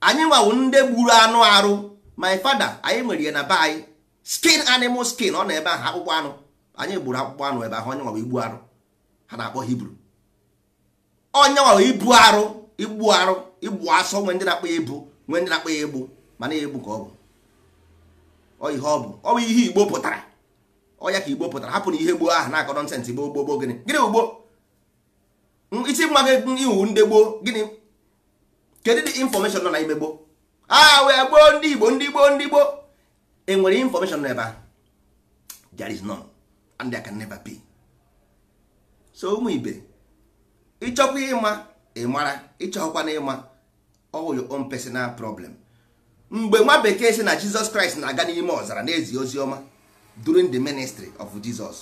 anyị nwawo ndị gburu anụ arụ my father anyị nwere ya na be anyị skin animal skin ọ na ebe ahụ akpụkpọ anụ anyị gburu akpụkpọ anụ ebe ahụ onye nwawa igbu arụ ha na-akpọ hibru onye nwawa ibu arụ igbu arụ igbu asọ nwe ndị na-akpọ ya ibu nwe ndị na-akpọ ya egbu mana ya egbu ka ọ bụ ọ ihe ọ bụ ọ bụ ihe igbo pụtara ọ ka igbo pụtara hapụ na ihe gboo ahụ na-akọ nọnsensị gboo gboo gboo gịnị gịnị ugbo isi mma gị iwu ndị gboo gịnị kedu dị infọmeshọn nọ ime gboo a wee gboo ndị igbo ndị gboo ndị gboo enwere infọmeshọn n'ebe ahụ there is none and there can never be so ụmụ ibe ịchọkwa ịma ịmara ịchọkwa na ịma all your own personal problem mgbe nwa bekee si na jizọs kraịst na-aga n'ime ọzara na-ezi ozi ọma during the ministry of jizọs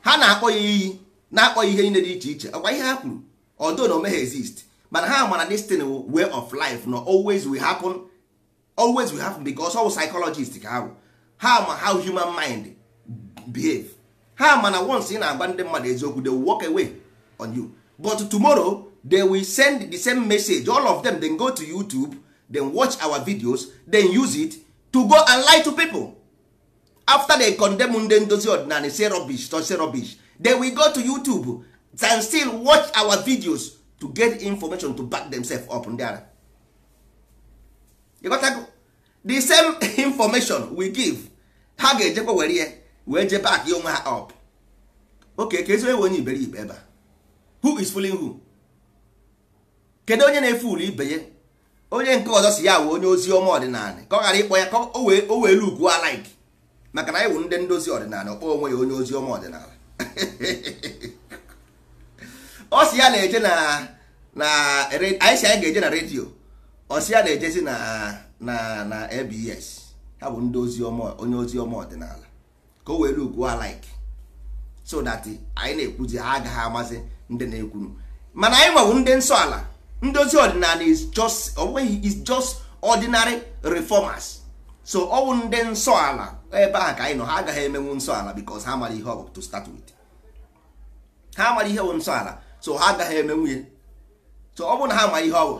ha na-akpọ ya iyi na-akpọ ya ihe niile dị iche iche ọkwa ihe ha kwuru ọdụ na omegha exist mana ha mara destin way of life na always will happen always will happen because all psychologist ka ha ha ma how human mind behave ha ma na once ị na-agba ndị mmadụ eziokwu they will walk away on you but tomorrow they will send the same message all of them then go to youtube then watch our videos then use it to go and lie to people after they condemn ndị ndozi ọdịnala say rubbish to say rubbish then we go to youtube and still watch our videos to get information to back themselves up ndị ara ịgotago the same information we give ha ga-ejekwa were ya wee je back ya onwe ha up okay ka ezigbo onye iberibe ebe a who is fooling who kedu onye na-efe ụlọ ibe ya onye nke ọzọ si ya wee onye ozi ọma ọdịnala ka ọ ghara ịkpọ ya ka o wee o wee lukuo alaik maka na anyị wụ ndị ndozi ọdịnala ọkpọ onwe ya onye ozi ọma ọdịnala ọ si ya na-eje na na anyị si anyị ga-eje na redio ọ si ya na-ejezi na na na EBS ha bụ ndị ozi ọma onye ozi ọma ọdịnala ka o wee lukuo alaik so that anyị na-ekwuzi ha agaghị amasị ndị na-ekwunu mana anyị nwebụ ndị nsọ ala ndozi ọdịnala is just onweghị is just ordinary reformers so ọ bụ ndị nsọ ala ebe ahụ ka anyị nọ ha agaghị emenwu nsọ ala because ha mara ihe ọ bụ to start with ha mara ihe bụ nsọ ala so ha agaghị emenwu ya so ọ bụ na ha ma ihe ọ bụ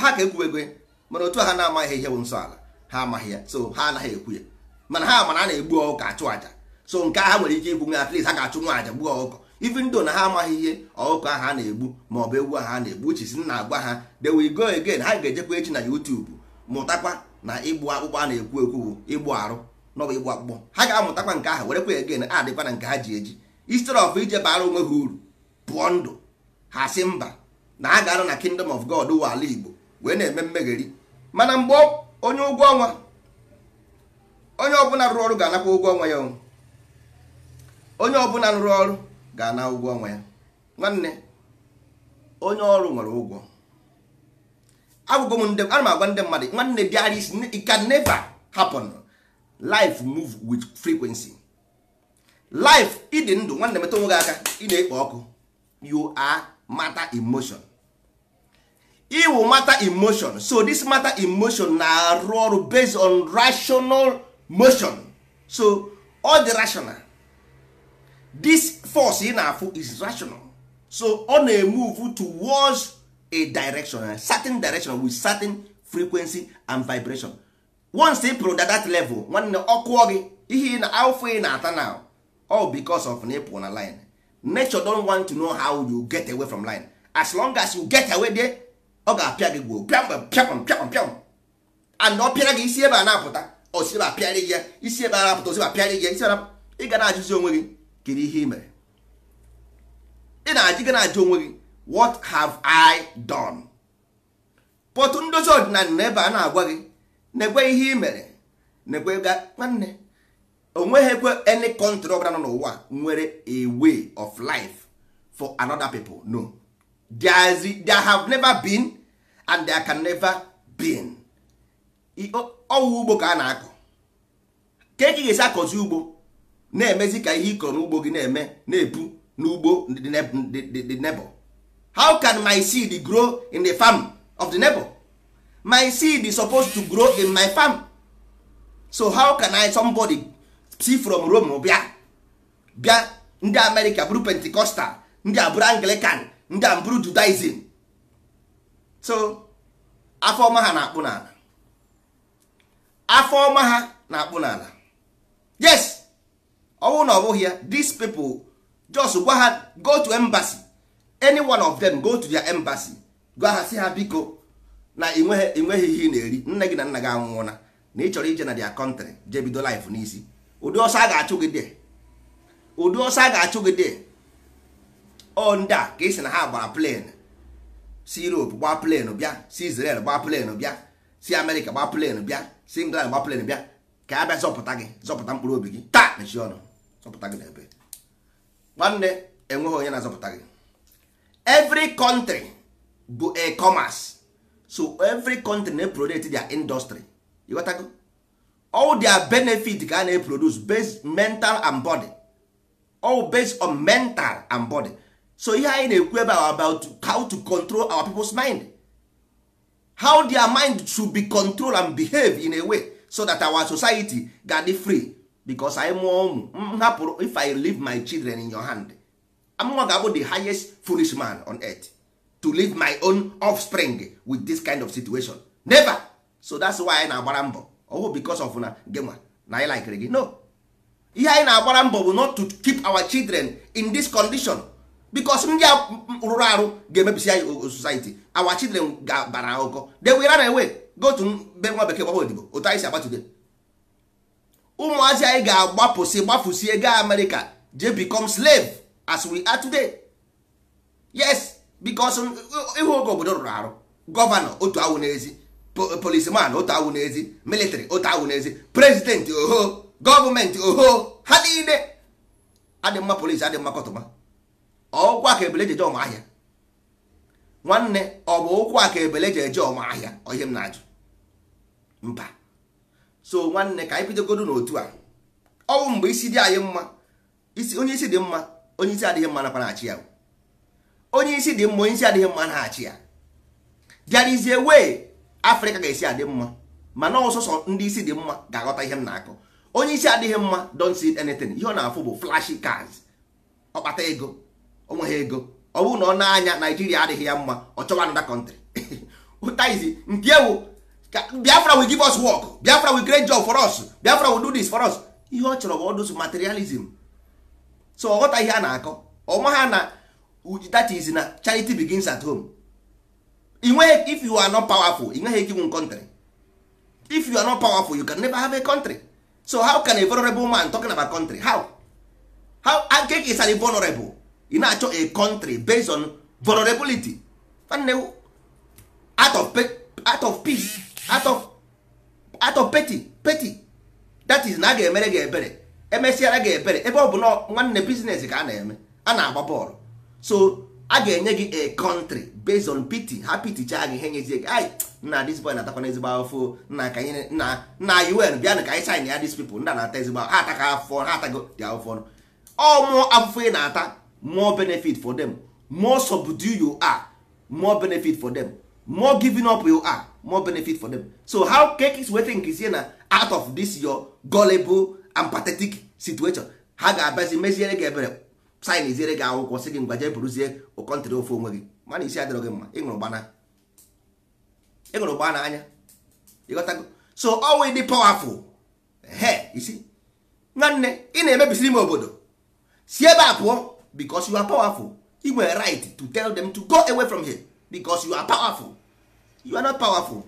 ha ka ekwuwego e ya mana otu ha na-amaghị ihe bụ nsọ ala ha amaghị ya so ha anaghị ekwu ya mana ha mana a na-egbu ọkụkọ achụ aja. so nke a ha nwere ike igbu nwe at least ha ga-achụ nwa aja gbuo ọkụkọ even though na ha amaghị ihe ọkụkọ ahụ a na-egbu ma ọ bụ ewu ahụ a na-egbu uchizi na agwa ha they will go again ha ga-ejekwa echi na YouTube mụtakwa na ịgbụ akpụkpọ a na-ekwu ekwu ịgbụ arụ n'ọbụ ịgbụ akpụkpọ ha ga-amụtakwa nke ahụ werekwa again adịkwa na nke ha ji eji instead of ije bara onwe ha uru pụọ ndụ ha si mba na ha ga arụ na kingdom of God ụwa ala Igbo wee na-eme mmegheri mana mgbe onye ụgwọ ọnwa onye ọbụla rụrụ ọrụ ga-anakwa ụgwọ ọnwa ya onwe onye ọbụla rụrụ ọrụ ga na ụgwọ ọnwa ya nwanne onye ọrụ nwere ụgwọ agwụgwọ m ndị ana m agwa ndị mmadụ nwanne bịara isi it can never happen life move with frequency life ịdị ndụ nwanne metụ onwe gị aka ị na-ekpo ọkụ you are matter emotion iwu matter emotion so this matter emotion na-arụ ọrụ based on rational motion so all the rational this force ị na-afụ is rational so ọ na-emove towards a direction a certain direction with certain frequency and vibration once ị pụrụ that level nwanne ọkụọ gị ihe na alpha ị na-ata now all because of na ịpụ na line nature don want to know how you get away from line as long as you get away there ọ ga-apịa gị gwuo pịam pịam and ọ pịara gị isi ebe a na-apụta osi ebe pịarị gị ya isi ebe a na-apụta osi pịarị gị ya isi ebe ị ga na-ajụzi onwe gị kiri ihe ị mere ị na ajịga gị na-ajụ onwe gị what have i done pọtụ ndozi ọdịnala na ebe a na-agwa gị na-ekwe ihe ị mere na-ekwe nwanne onweghị ekwe any country ọbụla nọ n'ụwa nwere a way of life for another people no there, is, there have never been and there can never been ọwụ ugbo ka a na-akọ ka eke ga-esi akọzi ugbo na-emezi ka ihe ị kọrọ n'ugbo gị na-eme na ebu n'ugbo the neighbor how can my seed grow in the farm of the neighbor my seed is supposed to grow in my farm so how can I somebody see from Rome bịa bịa ndị America bụrụ Pentecostal ndị abụrụ Anglican ndị a Judaism so afọ ọma ha na-akpụ n'ala afọ ọma ha na-akpụ n'ala yes ọnwụ na ọ ya these people just gwa ha go to embassy any one of them go to their embassy gwa ha si ha biko na ịnweghị ihe ị na-eri nne gị na nna gị anwụọna na ị chọrọ ije na their country jee bido life n'isi ụdị ọsọ a ga-achụ gị dee ụdị ọsọ a ga-achụ gị dee ọ ndị a ka ị sị na ha gbara plen si europe gbaa plen bịa si israel gbaa plen bịa si amerika gbaa plen bịa si england gbaa plen bịa ka a bịa zọpụta gị zọpụta mkpụrụ obi gị taa mechie ọnụ zọpụta gị n'ebe nwanne enweghị onye na-azọpụta gị every country bụ e commerce so every country na-eproduce their industry ịghọtago all their benefit ka a na-eproduce based mental and body all based on mental and body so ihe anyị na-ekwu ebe about how to control our people's mind how their mind should be controlled and behave in a way so that our society ga dey free because anyị mụọ ụmụ m mm, hapụrụ if i leave my children in your hand amụma ga-abụ the highest foolish man on earth to leave my own offspring with this kind of situation never so that's why anyị na-agbara mbọ ọwụ because of na genwa na anyị likere gị no ihe anyị na-agbara mbọ bụ not to keep our children in this condition because ndị rụrụ arụ ga-emebisi anyị society our children ga-abara ụkọ they will run away go to mbe nwa bekee gbawa odibo otu anyị si agba today ụmụazị anyị ga-agbapụsị gbapụsie gaa amerịka je become slave as we are today yes because ịhụ oge obodo rụrụ arụ gọvanọ otu awụ n'ezi polisman otu awụ n'ezi military otu awụ n'ezi prezidenti oho gọọmenti oho ha niile adị mma polisi adị mma kọtụma ọkwa ka ebele eje nwanne ọ bụ ụkwụ aka ka ebele ji eje ọma na-ajụ mba so nwanne ka anyị bidogodo n'otu a ọnwụ mgbe isi dị anyị mma isi onye isi dị mma onye isi adịghị mma nakwa na-achị ya onye isi dị mma onye isi adịghị mma na-achị ya there is afrịka ga-esi adị mma mana ọsọsọ ndị isi dị mma ga-aghọta ihe m na-akọ onye isi adịghị mma don't see anything ihe ọ na-afụ bụ flashy cars ọkpata ego onweghị ego ọ bụrụ na ọ na-anya naijiria adịghị ya mma ọ chọwa another country ụta izi nke ewu biafra will give us work biafra will create job for us biafra will do this for us ihe ọ chọrọ bụ ọdụsụ materialism so ọghọta ihe a na-akọ ọma ha na that is na charity begins at home if you are not powerful inweghị ike inwe country if you are not powerful you can never have a country so how can a vulnerable man talking about country how how agek is an vulnerable ị na-achọ a country based on vulnerability out of peace atọ peti peti that is na a ga-emere gị ebere emesịara gị ebere ebe ọ bụ na nwanne biznes ka a na-eme a na-agba bọọlụ so a ga-enye gị a country based on pity ha pitichaa gị ihe nyezie gị ai nna dis boy na-atakwana ezigbo afọ na ka anyị na na un bịanụ ka anyị sin ya dis people nna na-ata ezigbo ha ataka afọ ha atago dị afọ ọ mụọ afụfụ ị na-ata more benefit for them more subdue you are more benefit for them more giving up you are more benefit for them so how kekis wee think is na out of this your gullible and pathetic situation ha ga-abịazi meziere gị ebere sin iziere gị akwụkwọ sị gị ngwa jee bụrụzie ụkọntịrị ofe onwe gị mana isi adịrọ gị mma ịṅụrụ gbana anya ịghọtago so always dị powerful he isi nwanne ị na-emebisiri m obodo si ebe a pụọ because you are powerful ị nwere right to tell them to go away from here because you are powerful you are not powerful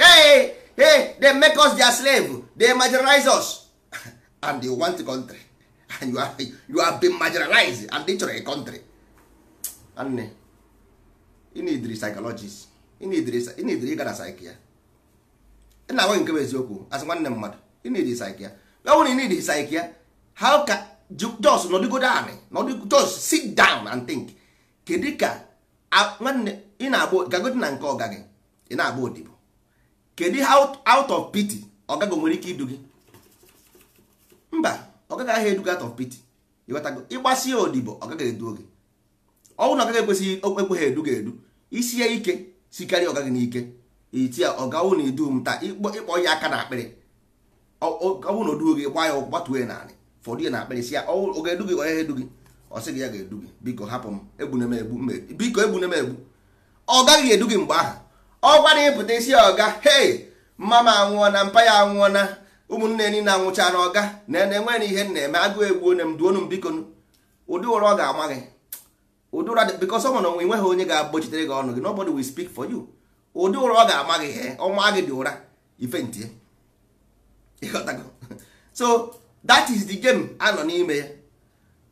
hey hey they make us their slave they marginalize us and they want a country and you are, you are being marginalized and they chọrọ a country nne inidri psychologist inidri inidri ịga na psyche ya ị na-agwa nke bụ eziokwu asị nwanne mmadụ inidri psyche ya ọ bụrụ na inidri psyche how can just nọdụgo down nọdụgo just sit down and think kedika ka nwanne ị na-agba gagodi na nke ọga gị ị na-agba odibo kedu ihe out of pity ọgago nwere ike idu gị mba ọgaghị aha eduga out of pity ịghọtago ịgbasi ya odibo ọgaghị edu gị ọnwụ na ọgaghị ekwesịghị ekweghị edu ga edu isi ya ike sikarịa ọga gị n'ike iti ya ọgawụ na idu m taa ịkpọ ya aka na akpịrị ọnwụ na oduo gị gba ya gbatuo ya naanị fọdụ ya na akpịrị si ya ọ edu gị onye edu gị ọ sị gị ya ga-edu gị biko hapụ m egbuna m e, egbu biko egbuna m egbu ọ gaghị edu gị mgbe ahụ ọ gwara ịpụta isi ọga hei mma m anwụọ na mpa ya anwụọ na ụmụnne niile anwụcha na ọga na na enwere ihe na-eme agụụ egbuo na m duonu m biko ụdị ụra ọ ga-ama gị ụdị ụra because ọ na onwe nweghị onye ga-agbochitere gị ọnụ gị nobody will speak for you ụdị ụra ọ ga-ama gị he ọnwa gị dị ụra ife ntie so that is the game anọ n'ime ya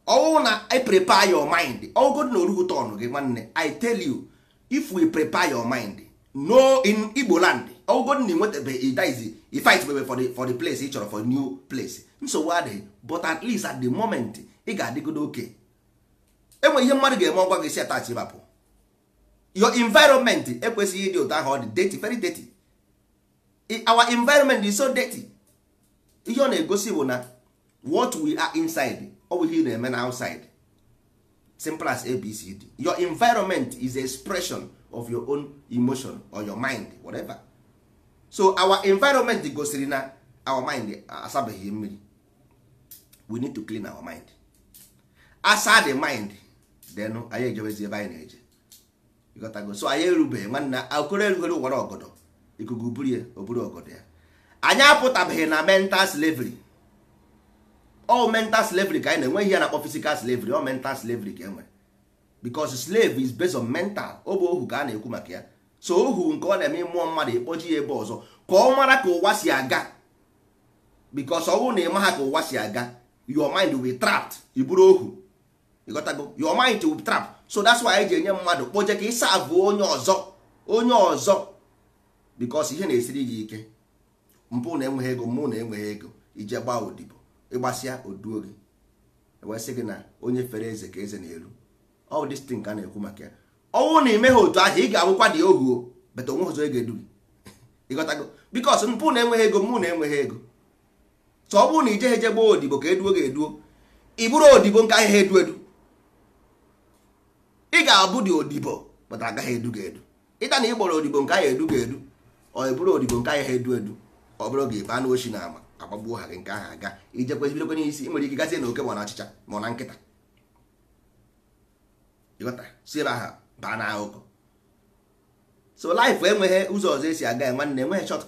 ọwụ na i prepare your mind ọgụgụ na orugu tọn gị nwanne i tell you if we prepare your mind no in igbo land ọgụgụ na nwetabe idiz ifight bebe for the, for the place ị chọrọ for new place nsogbu adịghị but at least at the moment ị ga-adịgodo oke enwe ihe mmadụ ga-eme ọgwa gị si atach ịbapụ your environment ekwesịghị ịdị ụtọ ahụ ọ dị dirty very dirty our environment is so dirty ihe ọ na-egosi bụ na what we are inside ọ bụ ihe ị na-eme na outside simple as abcd your environment is expression of your own emotion or your mind whatever so our environment gosiri na our mind asabeghị mmiri we need to clean our mind asa the mind then anyị ejebezi ebe anyị na-eje go so anyị erubeghị nwanne akụrụ erugoro ụwara ọgọdọ ikuku buru ya oburu ọgọdọ ya anyị apụtabeghị na mental slavery all mental slavery ka anyị e na-enwe ihe na-akpọ physical slavery all mental slavery ka enwere because slave is based on mental ọ bụ ohu ka a na-ekwu maka ya so ohu nke ọ na-eme mmụọ mmadụ ekpoji ya ebe ọzọ ka ọ mara ka ụwa si aga because ọ bụrụ na ị ka ụwa si aga your mind will trapped ị ohu your mind will trap so that's why anyị ji enye mmadụ kpoje ka ịsa abụ onye ọzọ onye ọzọ because ihe na-esiri gị ike mpụ na-enweghị ego mmụ na-enweghị ego ije gbaa odibo ịgbasịa oduo gị ewesị gị na onye fere eze ka eze na elu ọ bụ stin ka a na-ekwu maka ya ọnwụ na imeghe otu ahụ ị ga-abụkwa dị ohu bata onwe ụzọ ga edu gị ịghọtago bikos mpụ na-enweghị ego mụ na-enweghị ego so ọ bụrụ na ije eje gbaa odibo ka eduo gị eduo ị bụrụ odibo nke ahịa edu edu ị ga-abụ dị odibo bata agaghị edu gị edu ịta na ị gbọrọ odibo nke ahịa edu gị edu ọ bụrụ odibo nke ahịa edu edu ọ bụrụ gị baa n'ochi na ama agbagbuo ha gị nke aha aga ijekwa bidokwa n'isi ị nwere ike gazie na oke ma na achịcha ma na nkịta ịghọta si ebe aha baa na ahụkọ so life enweghị ụzọ ọzọ esi aga nwanne enweghị short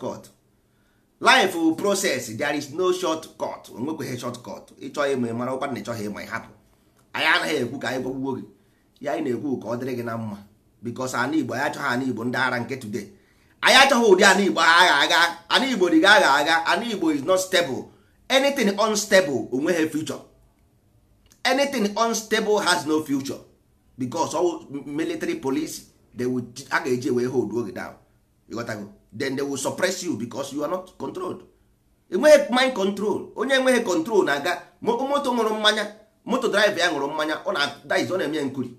laịfụ life process there is no short cut onwekweghị shọt cut ịchọghị ịmụ mara ụkwa na ịchọghị ịma ịhapụ anyị anaghị ekwu ka anyị gwagbugbo gị ya anyị na-ekwu ka ọ dịrị gị na mma bikos ana igbo anyị achọghị ana igbo ndị ara nke today anyị achọghị ụdị ana igbo agha agha ana igbo dị agha agha ana igbo is not stable anything unstable onweghị future anything unstable has no future because military police they will a ga-eji wee hold oge down ịghọtago then they will suppress you because you are not controlled enweghị mind control onye enweghị control na-aga moto nwụrụ mmanya moto drive ya nwụrụ mmanya ọ na-eme nkuri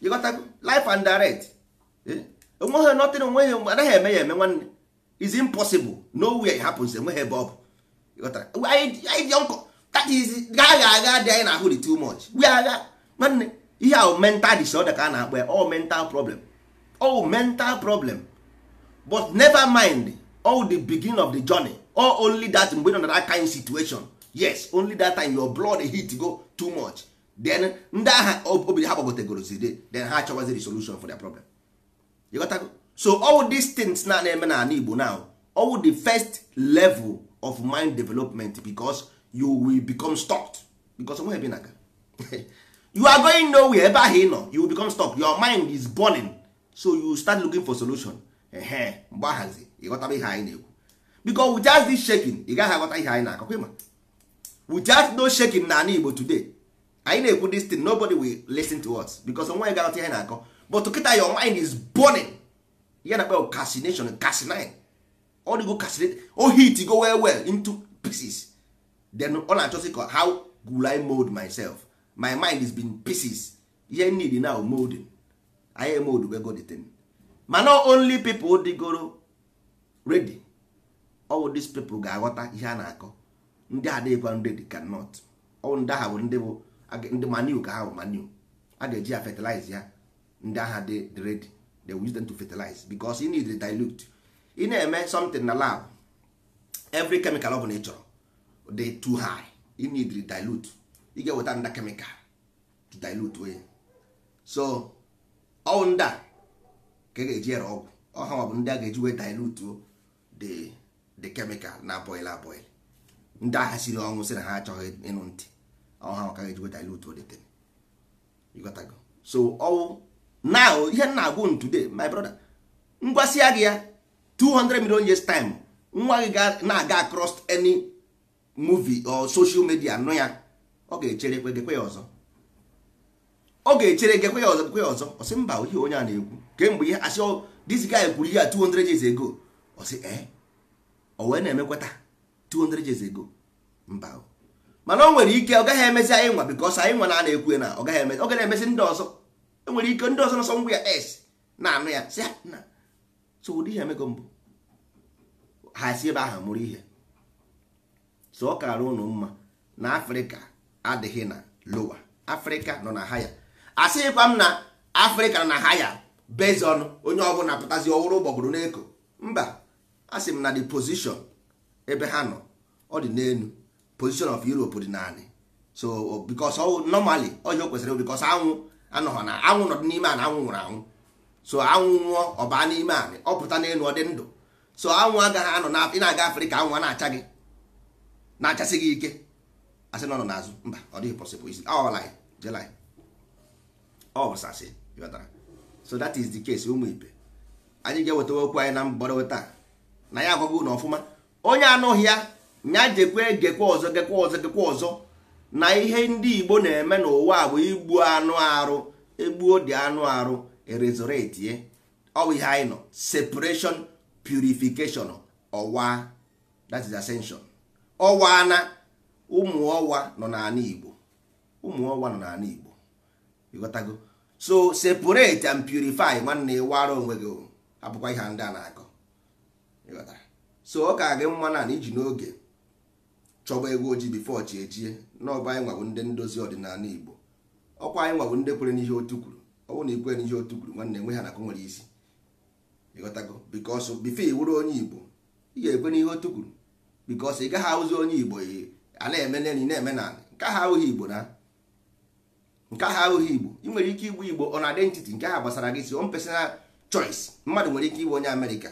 you got life and direct enweghị eh? nothing onweghị anaghị eme ya eme nwanne is impossible way it happens enweghị ebe ọ bụ anyị dị that is agha agha dị anyị na-ahụ di too much we agha nwanne ihe ahụ mental disorder ka a na-akpọ ya all mental problem all mental problem but never mind all the beginning of the journey or only that mgbe nọ na that kind situation yes only that time your blood heat go too much then ndị agha obi ha gbagotegorozide then ha achọwazi solution for their problem ịghọtago so all these things na na-eme na ala Igbo now all the first level of mind development because you will become stuck because onwe ebe na aga you are going nowhere ebe ahụ ị nọ you will become stuck your mind is burning so you start looking for solution ehe mgbe ahazi ịghọtaba ihe anyị na-ekwu because we just this shaking ị gaghị aghọta ihe anyị na-akọkwa ịma we just no shaking na ala Igbo today anyị na-ekwu this thing nobody will listen to us because onwe anyị ga-aghọta ihe na-akọ but kịta your mind is burning ya na akpa casination casinine di go casinate o hit go well well into pieces then ọ na-achọsị ka how will I mold myself my mind is been pieces ihe need now molding anyị emold go the thing ma no only people dịgoro ready all these people ga-aghọta ihe a na-akọ ndị adịghịkwa ready cannot ọ ndị ahụ bụ ndị bụ ndị manu ka ahụ manu a ga-eji ya fertilize ya ndị agha dị ready they will use dem to fertilize because you need to dilute ị na-eme something na lab every chemical ọ bụla ị chọrọ dị too high you need to dilute ị ga-eweta nda chemical to dilute onye so ọwụ nda ka ị ga-eji ere ọgwụ ọha bụ ndị a ga-eji wee dilute the dey chemical na boil aboil ndị agha siri ọnwụ sị na ha achọghị ịnụ ntị ọha maka ga-eji weta ilu to deten ịghọtago so ọwụ now ihe nna agwụ today my brother ngwasịa gị ya 200 million years time nwa gị na-aga across any movie or social media nụ ya ọ ga-echere gekwe ya ọzọ ọ ga-echere gekwe ya ọzọ gekwe ya ọzọ ọ sị mba ihe onye a na-ekwu kemgbe ihe asị oh, this guy kwuru ihe a 200 years ago ọ sị ee eh? ọ wee na emekweta 200 years ago mba mana o nwere ike ọ gaghị emezi anyị nwa bikos anyị nwa na-ana ekwu na ọ gaghị emezi ọ gaghị na-emezi ndị ọzọ e nwere ike ndị ọzọ nọsọ ngwa ya s na-anụ ya si na so ụdị ihe emego mbụ ha si ebe ahụ mụrụ ihe so ọ kara ụnụ mma na afrịka adịghị na lowa afrịka nọ na haya asịghịkwa m na afrịka nọ na haya bezi ọnụ onye ọbụla pụtazi ọwụrụ ụgbọgụrụ n'eko mba asị m na the position ebe ha nọ ọ dị n'elu position of europe dị naanị so bikos normally ọhịa o kwesịrị bikos anwụ anọghọ na anwụ n'ọdụ n'ime a na anwụ nwụrụ anwụ so anwụ nwụọ ọba n'ime anị ọ pụta n'elu ọ dị ndụ so anwụ agaghị anọ na na-aga afrịka anwụ na-acha gị na-achasị gị ike asị na ọ nọ n'azụ mba ọ dịghị possible isi ọsasị yọtara so that is the case ụmụ ibe anyị ga-ewetawa okwu anyị na mgbọrọwe taa na ya agwago na ọfụma onye anụghị ya nya jekwe gekwe ọzọ gekwe ọzọ gekwe ọzọ na ihe ndị igbo na-eme n'ụwa a bụ igbu anụ arụ egbuo dị anụ arụ erezoretie ọwụ ihe anyị nọ separation purification ọwa that is ascension ọwa na ụmụ ọwa nọ n'ala igbo ụmụ ọwa nọ n'ala igbo ịghọtago so separate and purify nwanne ị ịwara onwe gị abụkwa ihe ndị a na-akọ so ọ ka gị mma na iji n'oge chọba ego ojii bifo chi ejie n'ọba anyị nwabụ ndị ndozi ọdịnala igbo ọkwa anyị nwabụ ndị kwere n'ihe otu kwuru ọ bụrụ na ikwere n'ihe otu kwuru nwanne enwe ha nakụ nwere isi ịghọtago bikos bifo iwuru onye igbo ị ga-ekwe n'ihe otu kwuru bikos ị gaghị ahụzi onye igbo a na-eme neni na-eme na nke ahụ ahụghị igbo na nke ahụ ahụghị igbo ị nwere ike igbu igbo on identity nke ahụ gbasara gị si on personal choice mmadụ nwere ike ịbụ onye amerịka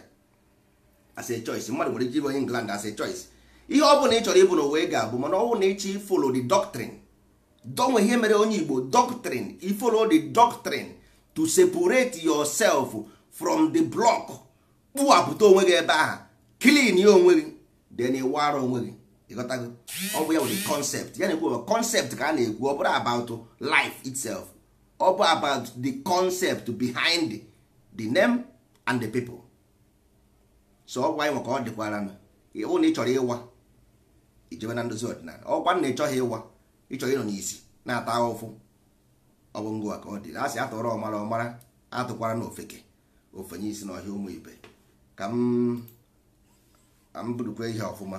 as choice mmadụ nwere ike ịbụ onye england as choice ihe ọ bụla ị chọrọ ịbụ n'ụwa ị ga-abụ mana ọ bụ na ịchọ ifolo the doctrine donwe ihe mere onye Igbo doctrine ifolo the doctrine to separate yourself from the block kpụwapụta onwe gị ebe aha clean ya onwe gị then ịwara onwe gị ọ bụ ya nwere concept ya na-ekwu concept ka a na-ekwu ọ bụrụ about life itself ọ bụ about the concept behind the name and the people so ọ bụ anyị maka ọ dịkwara na ịhụ na ị chọrọ ịwa ijewe na ndozi ọdịnala ọkwa na ịchọghị ịwa ịchọghị ịnọ n'isi na-ata ụfụ ọ bụ ngụwa ka ọ dị asị sị atụrụ ọmara ọmara atụkwara na ofeke ofenye isi ọhịa ụmụ ibe ka m budukwa ihe ọfụma